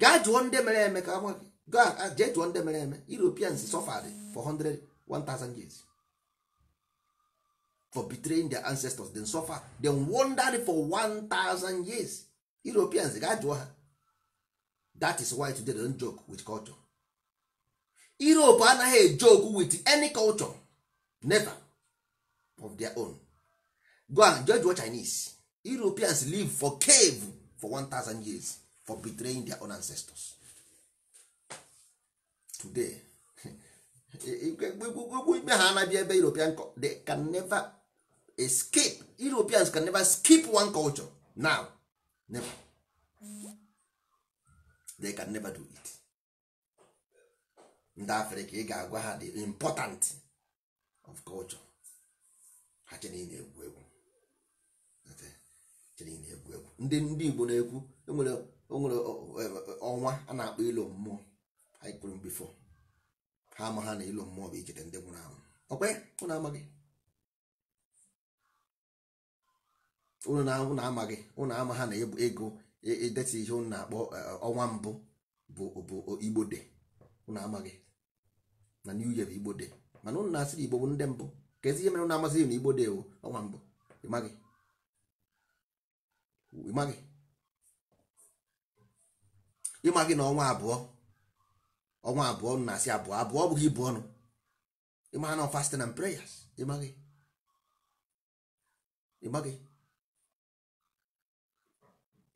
gaa jụọ ndị mere eme ka nwa gị jee jụọ ndị mere eme Europeans suffered for 100 1000 years for betraying their ancestors then suffer then wandered for 1000 years Europeans gaa jụọ ha that is why today they don't joke with culture europe anaghị joke with any culture never of their own go and judge what chinese europeans live for cave for 1000 years for betraying their own ancestors today ime ha anabịa ebe european they can never escape europeans can never skip one culture now never they can never do it ndị afrịka ị ga-agwa ha the important of culture ha chere na-egwu egwu chere na-egwu egwu ndị ndị igbo na-ekwu enwere onwere e e, e, ọnwa a na-akpọ ilo mmụọ anyị bifo ha ama ha na ilo mmụọ bụ ichete ndị nwụrụ anwụ ọkwe ụnụ amaghị ụnụ na-amaghị ụnụ ama ha na ego ideta ihe unu na-akpọ eh, ọnwa mbụ bụ igbo de unu amaghị na new year bụ igbo de mana unu na-asịrị igbo bụ ndị mbụ ka ezi ihe mere unu amasịghị na igbo de bụ ọnwa mbụ ịmaghị ịmaghị ịmaghị na ọnwa abụọ ọnwa abụọ unu na-asị abụọ abụọ bụghị ibu ọnụ ịmaghị na fasting and prayers ịmaghị ịmaghị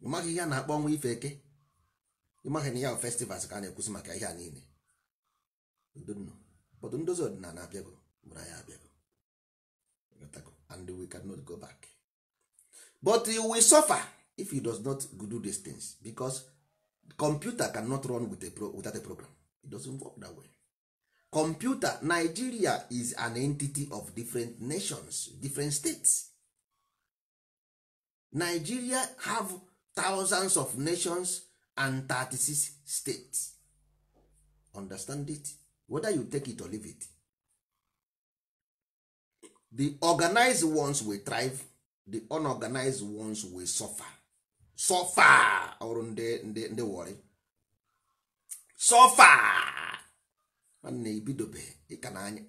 ịmaghị ihe a na-akpọ ọnwa ife eke ịmaghị na ya bụ festivals ka a na-ekwusi maka ihe a niile bọdụ ndozi ọdịnala abịago mụrụ anyị abịago and we cannot go back but you will suffer if you does not do these things because computer cannot run with a pro without a program it doesn't work that way computer nigeria is an entity of different nations different states nigeria have thousands of nations and 36 states understand it whether you take it or leave it the organized ones will thrive the unorganized ones will suffer suffer ọrụ ndị ndị ndị wọrị suffer nwanne ibidobe ịka na anya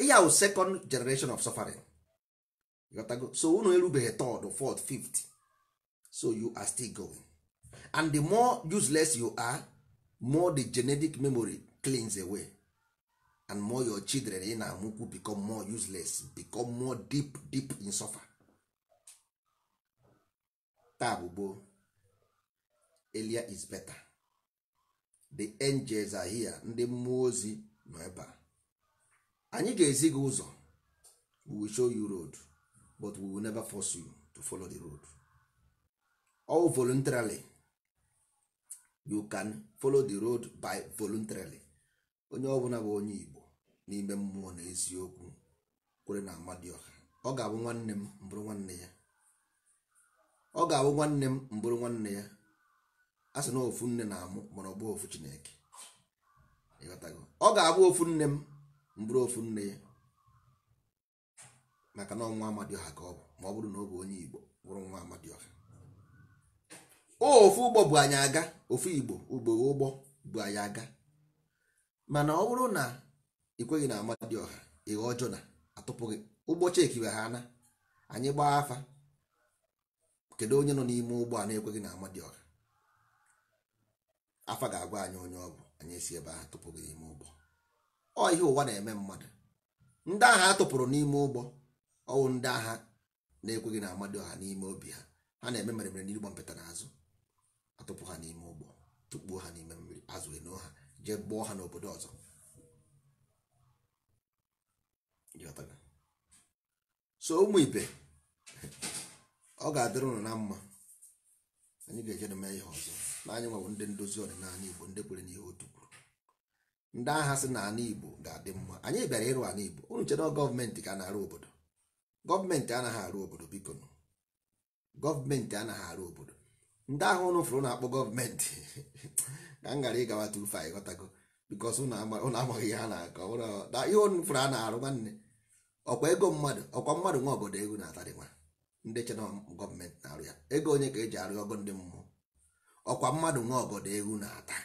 ihe second generation of suffering so unu erubeghị third fourth fifth so you are still going and the more useless you are more the genetic memory cleans away and more your children in amukwu amụkwu become more useless become more deep deep in suffer taa bụ elia is better the angels are here ndị mmụọ ozi nọ ebe anyị ga-ezi gị ụzọ we will show you road but we will never force you to follow the road. all voluntarily you can follow the road by voluntarily onye ọbụla bụ onye Igbo n'ime mmụọ na eziokwu kwere na Amadioha ọ ga-abụ nwanne m mbụrụ nwanne ya ọ ga-abụ nwanne m mbụrụ nwanne ya a sị na ofu nne na-amụ mana ọ bụ ofu Chineke ọ ga-abụ ofu nne m mbụrụ ofu nne ya maka na ọnwa Amadioha ka ọ bụ ma ọ bụrụ na ọ bụ onye Igbo bụrụ nwa Amadioha ofu ụgbọ bụ anyị aga ofu igbo ugbo ụgbọ bụ anyị aga mana ọ bụrụ na ikweghị na ọha ihe ọjọọ na atụpụghị ụgbọ chekiwe ha na anyị gbaa afa kedu onye nọ n'ime ụgbọ a na-ekweghị na amadioha afa ga-agwa anyị onye ọ bụ anyị esi ebe ahụ tụpụghị n'ime ụgbọ ọ ihe ụwa na-eme mmadụ ndị agha atụpụrụ n'ime ụgbọ ọwụ ndị agha na-ekweghị na ọha n'ime obi ha ha na-eme mere mere n'igbo mpụta n'azụ atụpụ ha n'ime ụgbọ tukpuo ha n'ime mmiri azụ eno ha jee gbuo ha n'obodo ọzọ so ụmụ ibe ọ ga-adịrị ụlọ na mma anyị ga-eje na ihe ọzọ n'anya anyị nwewe ndị ndozi ọdịnala igbo ndị kwere n'ihe otu kwuru ndị agha si na ala igbo ga-adị mma anyị bịara ịrụ ala igbo unu chere gọọmenti ka na-arụ obodo gọọmenti anaghị arụ obodo biko gọọmenti anaghị arụ obodo ndị ahụ ụnụ fụrụ na-akpọ gọọmenti <laughs> ka m gara ịgawa tu fa ịghọtago bikos ụnụ amaghị ihe ha na-akọ ihe ụnụ fụrụ a na-arụ nwanne ọkwa ego mmadụ ọkwa mmadụ nwa obodo ego na-atarịkwa ndị chena gọọmenti na-arụ ya ego onye ka e ji arụ ọgọ ndị mmụọ ọkwa mmadụ nwa obodo ego na-ata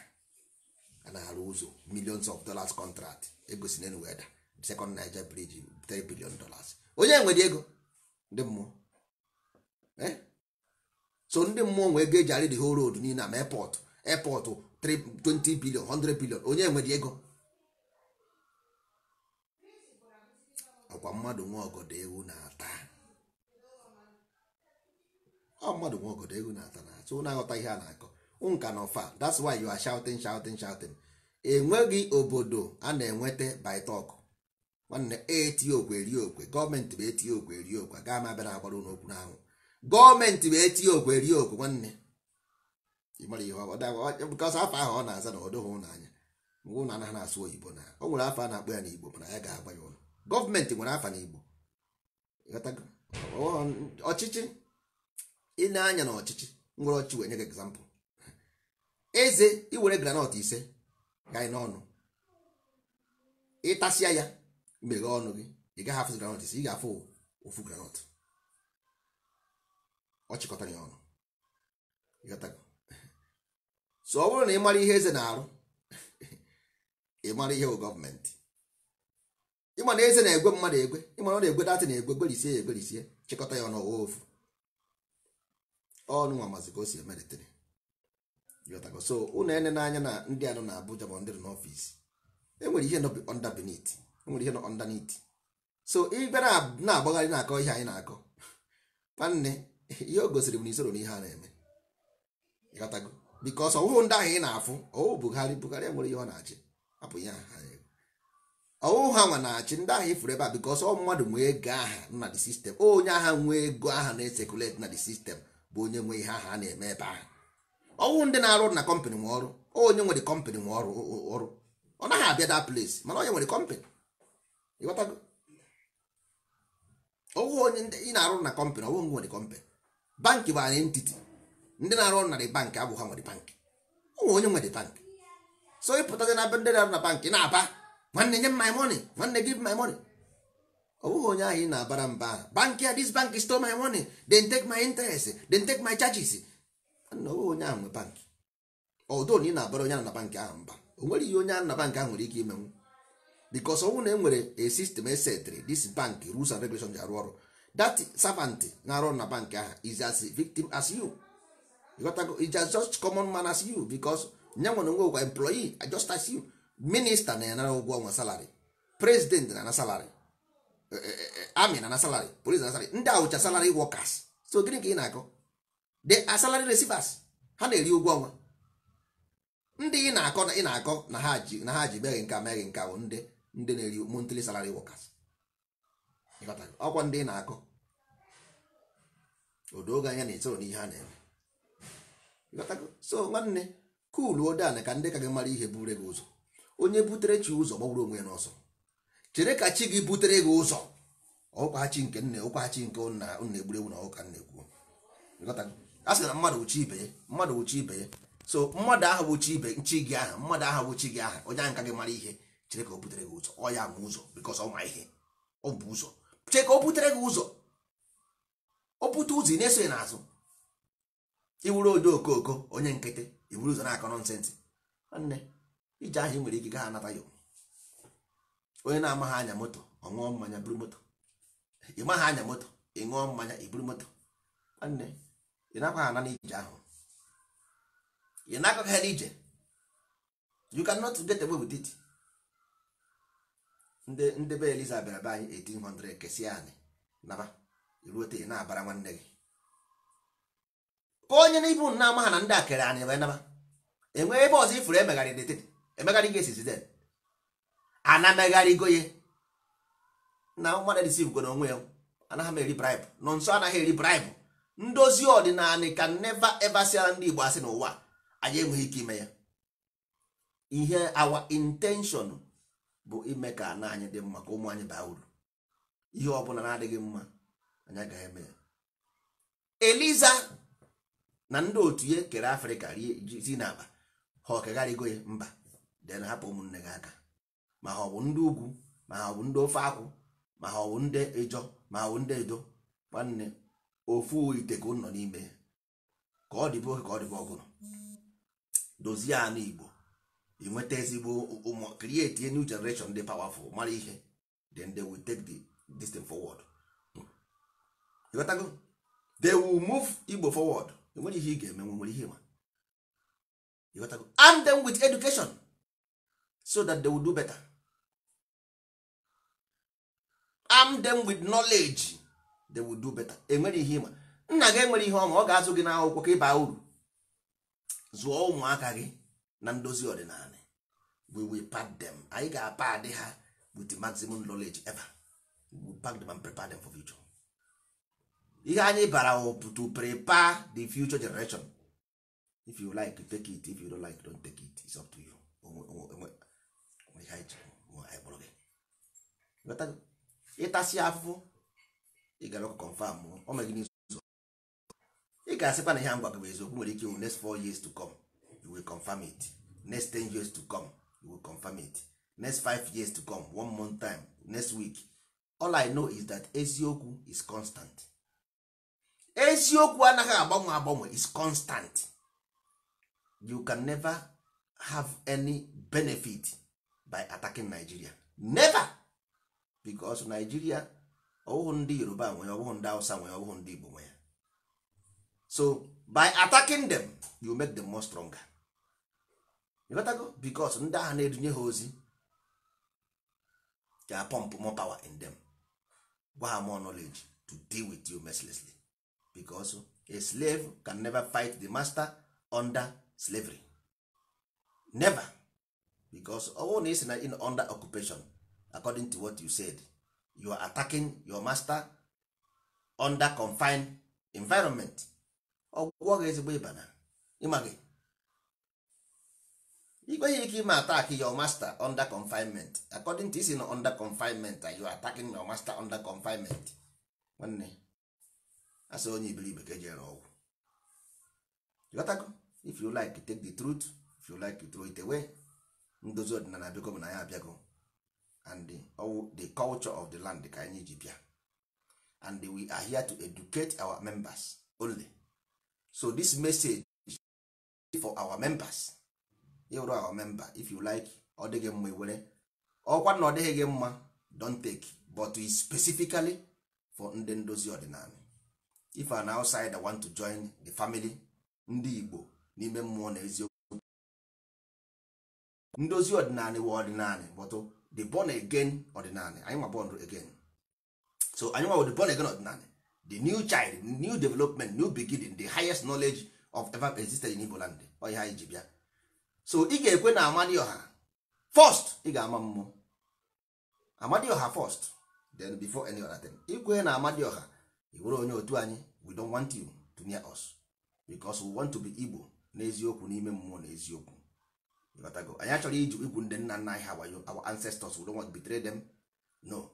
a na-arụ ụzọ millions of dollars contract ego si n'elu weda second Niger bridge 3 billion dollars onye nwere ego ndị mmụọ eh? so ndị mmụọ nwee ego eji arị whole road niile ma airport airport 20 billion 100 billion onye nwere ego ọkwa mmadụ nwe ọgọdọ ewu na-ata ọ mmadụ nwe ọgọdọ ewu na-ata na so na-aghọta ihe a na-akọ nka na ọfa that's why you are shouting shouting shouting enweghị obodo a na-enweta by nwanne eti okwe okwe gọọmenti bụ eti okwe okwe gaa ma bịara agbara ụlọ okwu n'anwụ gọọmenti wee tinye okwe rie okwe nwanne ihe ọkọsọ afọ ahụ ọ na-aza na ọdụghị ụnanya mgbe na anaghị na-asụ oyibo na o nwere afọ a na-akpọ ya n'igbo mana ya ga-agba ya ụlọ gọọmenti nwere afọ n'igbo ọchịchị ị na-anya na ọchịchị nwere ọchị wee nye gị egzampụl eze iwere granọt ise ga n'ọnụ ịtasịa ya meghe ọnụ gị ị gaghị afụ granọt ise ị ga-afụ ofu granọt ọ chịkọtara ya ọnụ so ọ bụrụ na ị mara ihe eze na-arụ ị mara ihe bụ gọọmenti ịma na eze na-egwe mmadụ egwe ịmana ọ na-egwe datị na-egwe gberisie ya egberisie chịkọta ya ọnụ ọwa ofu ọnụ nwa mazi ka o si emeritere so unu ene n'anya na ndị anọ na Abuja bụ ndị nọ n'ọfịs enwere ihe nọ underbeneath enwere ihe nọ underneath so ịbịa na-agbagharị na-akọ ihe anyị na-akọ nwanne ihe o gosiri m na isoro na a na-eme ịghọtago bikos ọwụhụ ndị ahụ ị na-afụ ọwụ Buhari Buhari nwere ihe ọ na-achị hapụ ihe ha ọwụhụ ha nwa na-achị ndị ahụ ifuru ebe a bikos ọ mmadụ nwee ego aha na the sistem onye agha nwee ego aha na-esekuleti na the sistem bụ onye nwee ihe aha na-eme ebe ahụ ọwụ ndị na-arụ na kọmpanị nwe ọrụ onye nwere kọmpanị nwe ọrụ ọrụ ọ naghị abịa da place mana onye nwere kọmpanị ịghọtago ọwụ onye ị na-arụ na kọmpanị ọwụ nwere kọmpanị bankị bụ anyị ntiti ndị na-arụ ọrụ na bankị abụghị ha nwere bankị ụmụ onye nwere bankị so ịpụtazi na be ndị na-arụ na bankị na-aba nwanne nye m my money nwanne give my money ọ bụghị onye ahụ ị na-abara mba bankị a this bank stole my money then take my interest den take my charges nna ọ bụghị onye ahụ nwe bankị ọdụ na ị na-abara onye ahụ na bankị ahụ mba o nwere ihe onye ahụ na bankị ahụ nwere ike imenwu because ọnwụ na e nwere a system esetri dis bankị rules and regulations ji arụ ọrụ that servant na-arụ na bank ahụ is as victim as you ịghọtago as just common man as you because nye nwere onwe ụgwa employee ah, just as you minista na yanara ụgwọ ọnwa salary president na na salary eh, eh, eh, army na na salary police na salary ndị awụcha salary workers so gịnị ka ị na-akọ The salary receivers ha na-eri ụgwọ ọnwa ndị ị na-akọ na ị na-akọ na ha ji na ha ji meghị nka meghị nka bụ ndị ndị na-eri monthly salary workers ọkwa ndị ị na-akọ odoge anya na-esoro n'ihe a na-eme so nwanne kulu ode ana ka ndị ka gị mara ihe bure gị ụzọ onye butere chi ụzọ gbagburu onwe ya n'ọsọ chere ka chi gị butere gị ụzọ ọkwachi nke nne ọkwachi nke nna nna egburegbu na ọka nna ekwu a sị na mmadụ uchi ibe mmadụ uchi ibe ya so mmadụ ahụ bụ chi ibe nchi gị aha mmadụ ahụ bụ chi gị aha onye ahụ ka gị mara ihe chere ka o butere gị ụzọ ọ ya ma ụzọ bikọs ọ ihe ọ bụ ụzọ chee ka o butere gị ụzọ o bute ụzọ ị na-eso n'azụ iwuru odo okooko onye nkịtị iwuru ụzọ na-akọ nọnsensị nwanne ije ahụ ị nwere ike gaa anata ya onye na-amaghị anya moto ọ ṅụọ mmanya buru moto ị anya moto ị ṅụọ mmanya i moto nwanne ị nakwaghị ana n'ije ahụ ị na nakọghị ije you cannot get away with it ndị ndị be eliza bịara be anyị 1800 kesi anyị naba iruote na-abara nwanne gị ka onye n'ibu na ama ha na ndị a kere anyị wee naba enwee ebe ọzọ ifuru emegharị deted emegharị gị esizi den ana megharịgo ye na mmadụ dịsi igwe na onwe ya anaghị m eri bribe nọ nso anaghị eri bribe ndozi ọdịnala ka neva eva siara ndị igbo asị n'ụwa anyị enweghị ike ime ya ihe awa intention bụ ime ka ana anyị dị mma ka ụmụ anyị baa uru ihe ọbụla na-adịghị mma anyị agaghị eme ya eliza na ndị otu ihe kere afrịka ri n'aba ha ọkegharịgo ya mba den hapụ ụmụnne gị aka ma ha ọ bụ ndị ugwu ma ha ọ bụ ndị ofe akwụ ma ha ọ bụ ndị ịjọ ma ha ọ bụ ndị edo nwanne ofu ite ka nọ n'ime ka ọ dịbe ka ọ dịbe ọgụrụ dozie anụ igbo ị nweta ezigbo ụmụ create a new generation dị powerful mara ihe then they will take the distance forward ịghọtago they will move Igbo forward enwere ihe ị ga-eme nwere ihe ma ịghọtago arm them with education so that they will do better arm them with knowledge they will do better enwere ihe ma nna gị enwere ihe ọma ọ ga-azụ gị n'akwụkwọ ka ịba uru zụọ ụmụaka gị na ndozi ọdịnala we will pack them anyị ga-apad ha with the maximum knowledge ever we will pack them and prepare them for future ihe anyị bara to prepare the future generation if you like take it if you don't like don't take it it's up to you ịtasị afụfụ ị gara ọkụ confam ọ megide ụzọ ị ga-asịkwa na ihe m gwa gị bụ eziokwu nwere ike next four years to come confirm it next 10 years to come you will confirm it next 5 years to come one month time next week all i know is that eziokwu is constant eziokwu anaghị agbanwe agbanwe is constant you can never have any benefit by attacking nigeria never because nigeria ọwụhụ ndị yoruba nwe ya ndị hausa nwe ya ndị igbo nwe ya so by attacking them you make them more stronger ịghọtago bikos ndị agha na-edunye ha ozi ga pump more power in them gwa ha more knowledge to deal with you mercilessly because a slave can never fight the master under slavery never because ọwụ na isi na in under occupation according to what you said you are attacking your master under confined environment ọgwụgwọ ga ezigbo ịbana na ịma You go ike ime attack your master under confinement according to isi no under confinement you are attacking your master under confinement nwanne asị onye iberibe ka ejere ọgwụ ịghọtago if you like take the truth if you like throw it away ndozi ọdịnala biko bụ na ya abịago and the, the culture of the land ka anyị ji bịa and we are here to educate our members only so this message is for our members ịwụrụ ahụ memba if you like ọ dịghị mma iwere ọkwa na ọ dịghị gị mma don't take but specifically for ndị ndozi ọdịnala if an outsider want to join the family ndị Igbo n'ime mmụọ na eziokwu ndozi ọdịnala wa ọdịnala but oh, the born again ọdịnala anyị nwa born again so anyị nwa the born again ọdịnala the new child new development new beginning the highest knowledge of ever existed in Igbo land ọ ihe anyị ji bịa so ị ga-ekwe na amadioha first ị ga-ama mmụọ first then before any other thing ikwe na amadioha iwere onye otu anyị we don't want you to near us because we want to be igbo n'eziokwu n'ime mmụọ na anyị achọrọ iji igwu ndị nna nna anyị ha wayo our ancestors we don't want to betray them no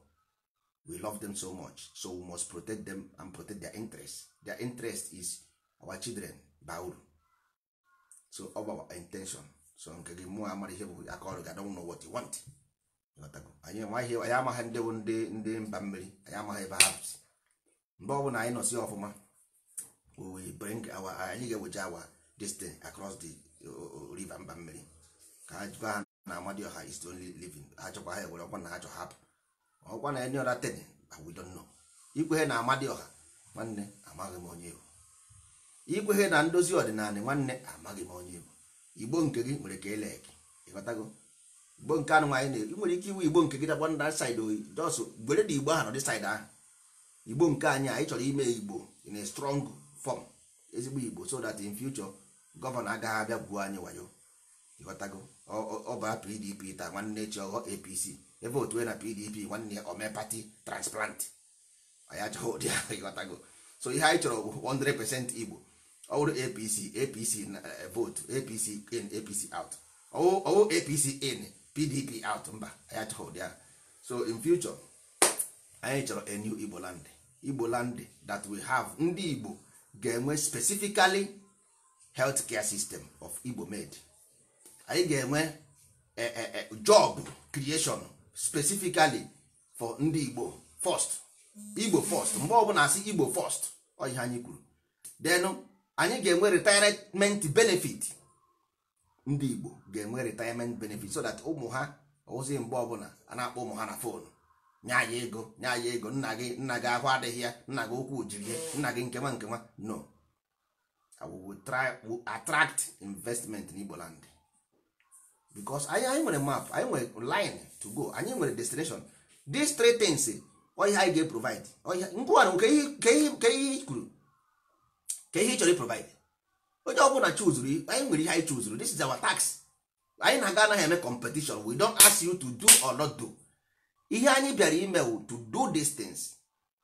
we love them so much so we must protect them and protect their interest their interest is our children bauru so our intention so nke gị mụọ amara ihe bụ aka ọrụ gị adọnwụ n'ụwa what you want anyị amaghị anyị amaghị ndị bụ ndị ndị mba mmiri anyị amaghị ebe ha si mgbe ọbụla anyị nọsi ọfụma we bring our anyị ga-eweje awa destiny across the river mba mmiri ka ha jikwa ha na ọha is only living achọkwa ha ewere ọkwa na ha achọ hapụ ọkwa na any other thing we don't know ikwehe na ọha nwanne amaghị m onye bụ ikwehe na ndozi ọdịnala nwanne amaghị m onye bụ igbo nke gị nwere ka eleki ịghọtago igbo nke anụ nwaanyị na-eri nwere ike iwu igbo nke gị dagba na saịdị oyi jos gwere na igbo ahụ dị saịdị ahụ igbo nke anyị anyị chọrọ ime igbo in a strong form ezigbo igbo so that in future gọvanọ agaghị abịa gbuo anyị wayo ịghọtago ọbara pdp ta nwanne chi ọghọ apc ebe otu e na pdp nwanne ya omepati transplant anyị achọghị ụdị ahụ ịghọtago so ihe anyị chọrọ bụ 100 igbo ọwụrụ apc apc vote apc in apc out ọwụ apc in pdp out mba anyị achọghị ahụ so in future anyị chọrọ a new igbo land igbo land that we have ndị igbo ga-enwe specifically health care system of igbo made anyị ga-enwe eh, eh, eh, job creation specifically for ndị igbo first igbo first mgbe ọbụla asị igbo first ọ ihe anyị kwuru denu anyị ga-enwe retirement benefit ndị Igbo ga-enwe retirement benefit so that ụmụ ha ozi mgbe ọbụla a na-akpọ ụmụ ha na fonu nye anyị ego nye anyị ego nna gị nna gị ahụ adịghị ya nna gị okwu jiri ya nna gị nkewa nkewa no we try we attract investment n'Igboland land because anyị anyị nwere map anyị nwere line to go anyị nwere destination these three things ọ ọhịa anyị ga-eprovide ọhịa ngwa nke ihe kwuru ka ihe ị chọrọ ịprovide onye ọbụla chuzuru anyị nwere ihe anyị chuzuru this is our tax anyị na-aga anaghị eme competition we don't ask you to do or not do ihe anyị bịara ime to do things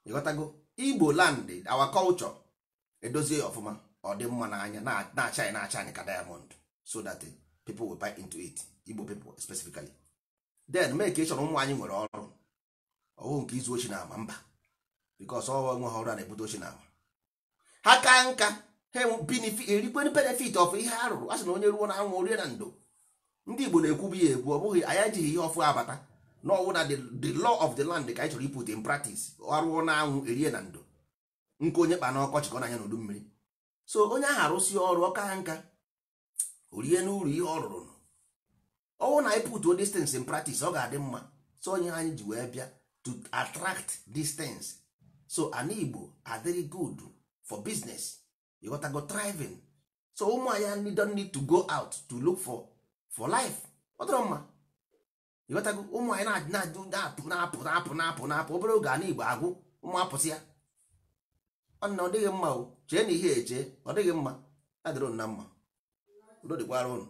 ịghọtago igbo land our culture edozie ọfụma ọ dị mma n'anya na-acha anyị na-acha anyị ka diamond so that people will buy into it igbo people specifically then mee ka ụmụ anyị nwere ọrụ ọhụụ nke izu ochi na ama mba because ọ nwe ha ọrụ a na-ebute ochi na ama ha ka nka ha erikwe benefit of ihe a rụrụ a sị na onye ruo na anwụ orie na ndo ndị Igbo na-ekwu bụ ya ekwu ọ bụghị anyị ejighị ihe ọfụ abata na ọwụ na the law of the land ka anyị chọrọ iput in practice arụọ na anwụ erie na ndo nke onye kpa na ọkọchị na-anya n'udu mmiri so onye ahụ arụsị ọrụ ọka nka orie n'uru ihe ọ rụrụ ọwụ na anyị put distance in practice ọ ga-adị mma so onye anyị ji wee bịa to attract distance so anigbo Igbo are very good for business you gotta go thriving so ụmụ anyị don't need to go out to look for for life ọ dịrọ mma ịghọtago ụmụ anyị na-apụ na-apụ na-apụ na-apụ na-apụ obere oge ana igbo agwụ ụmụ apụsị ya ọnna ọ dịghị mma o chee na ihe eche ọ dịghị mma adịrị na mma udo dịkwara ụnụ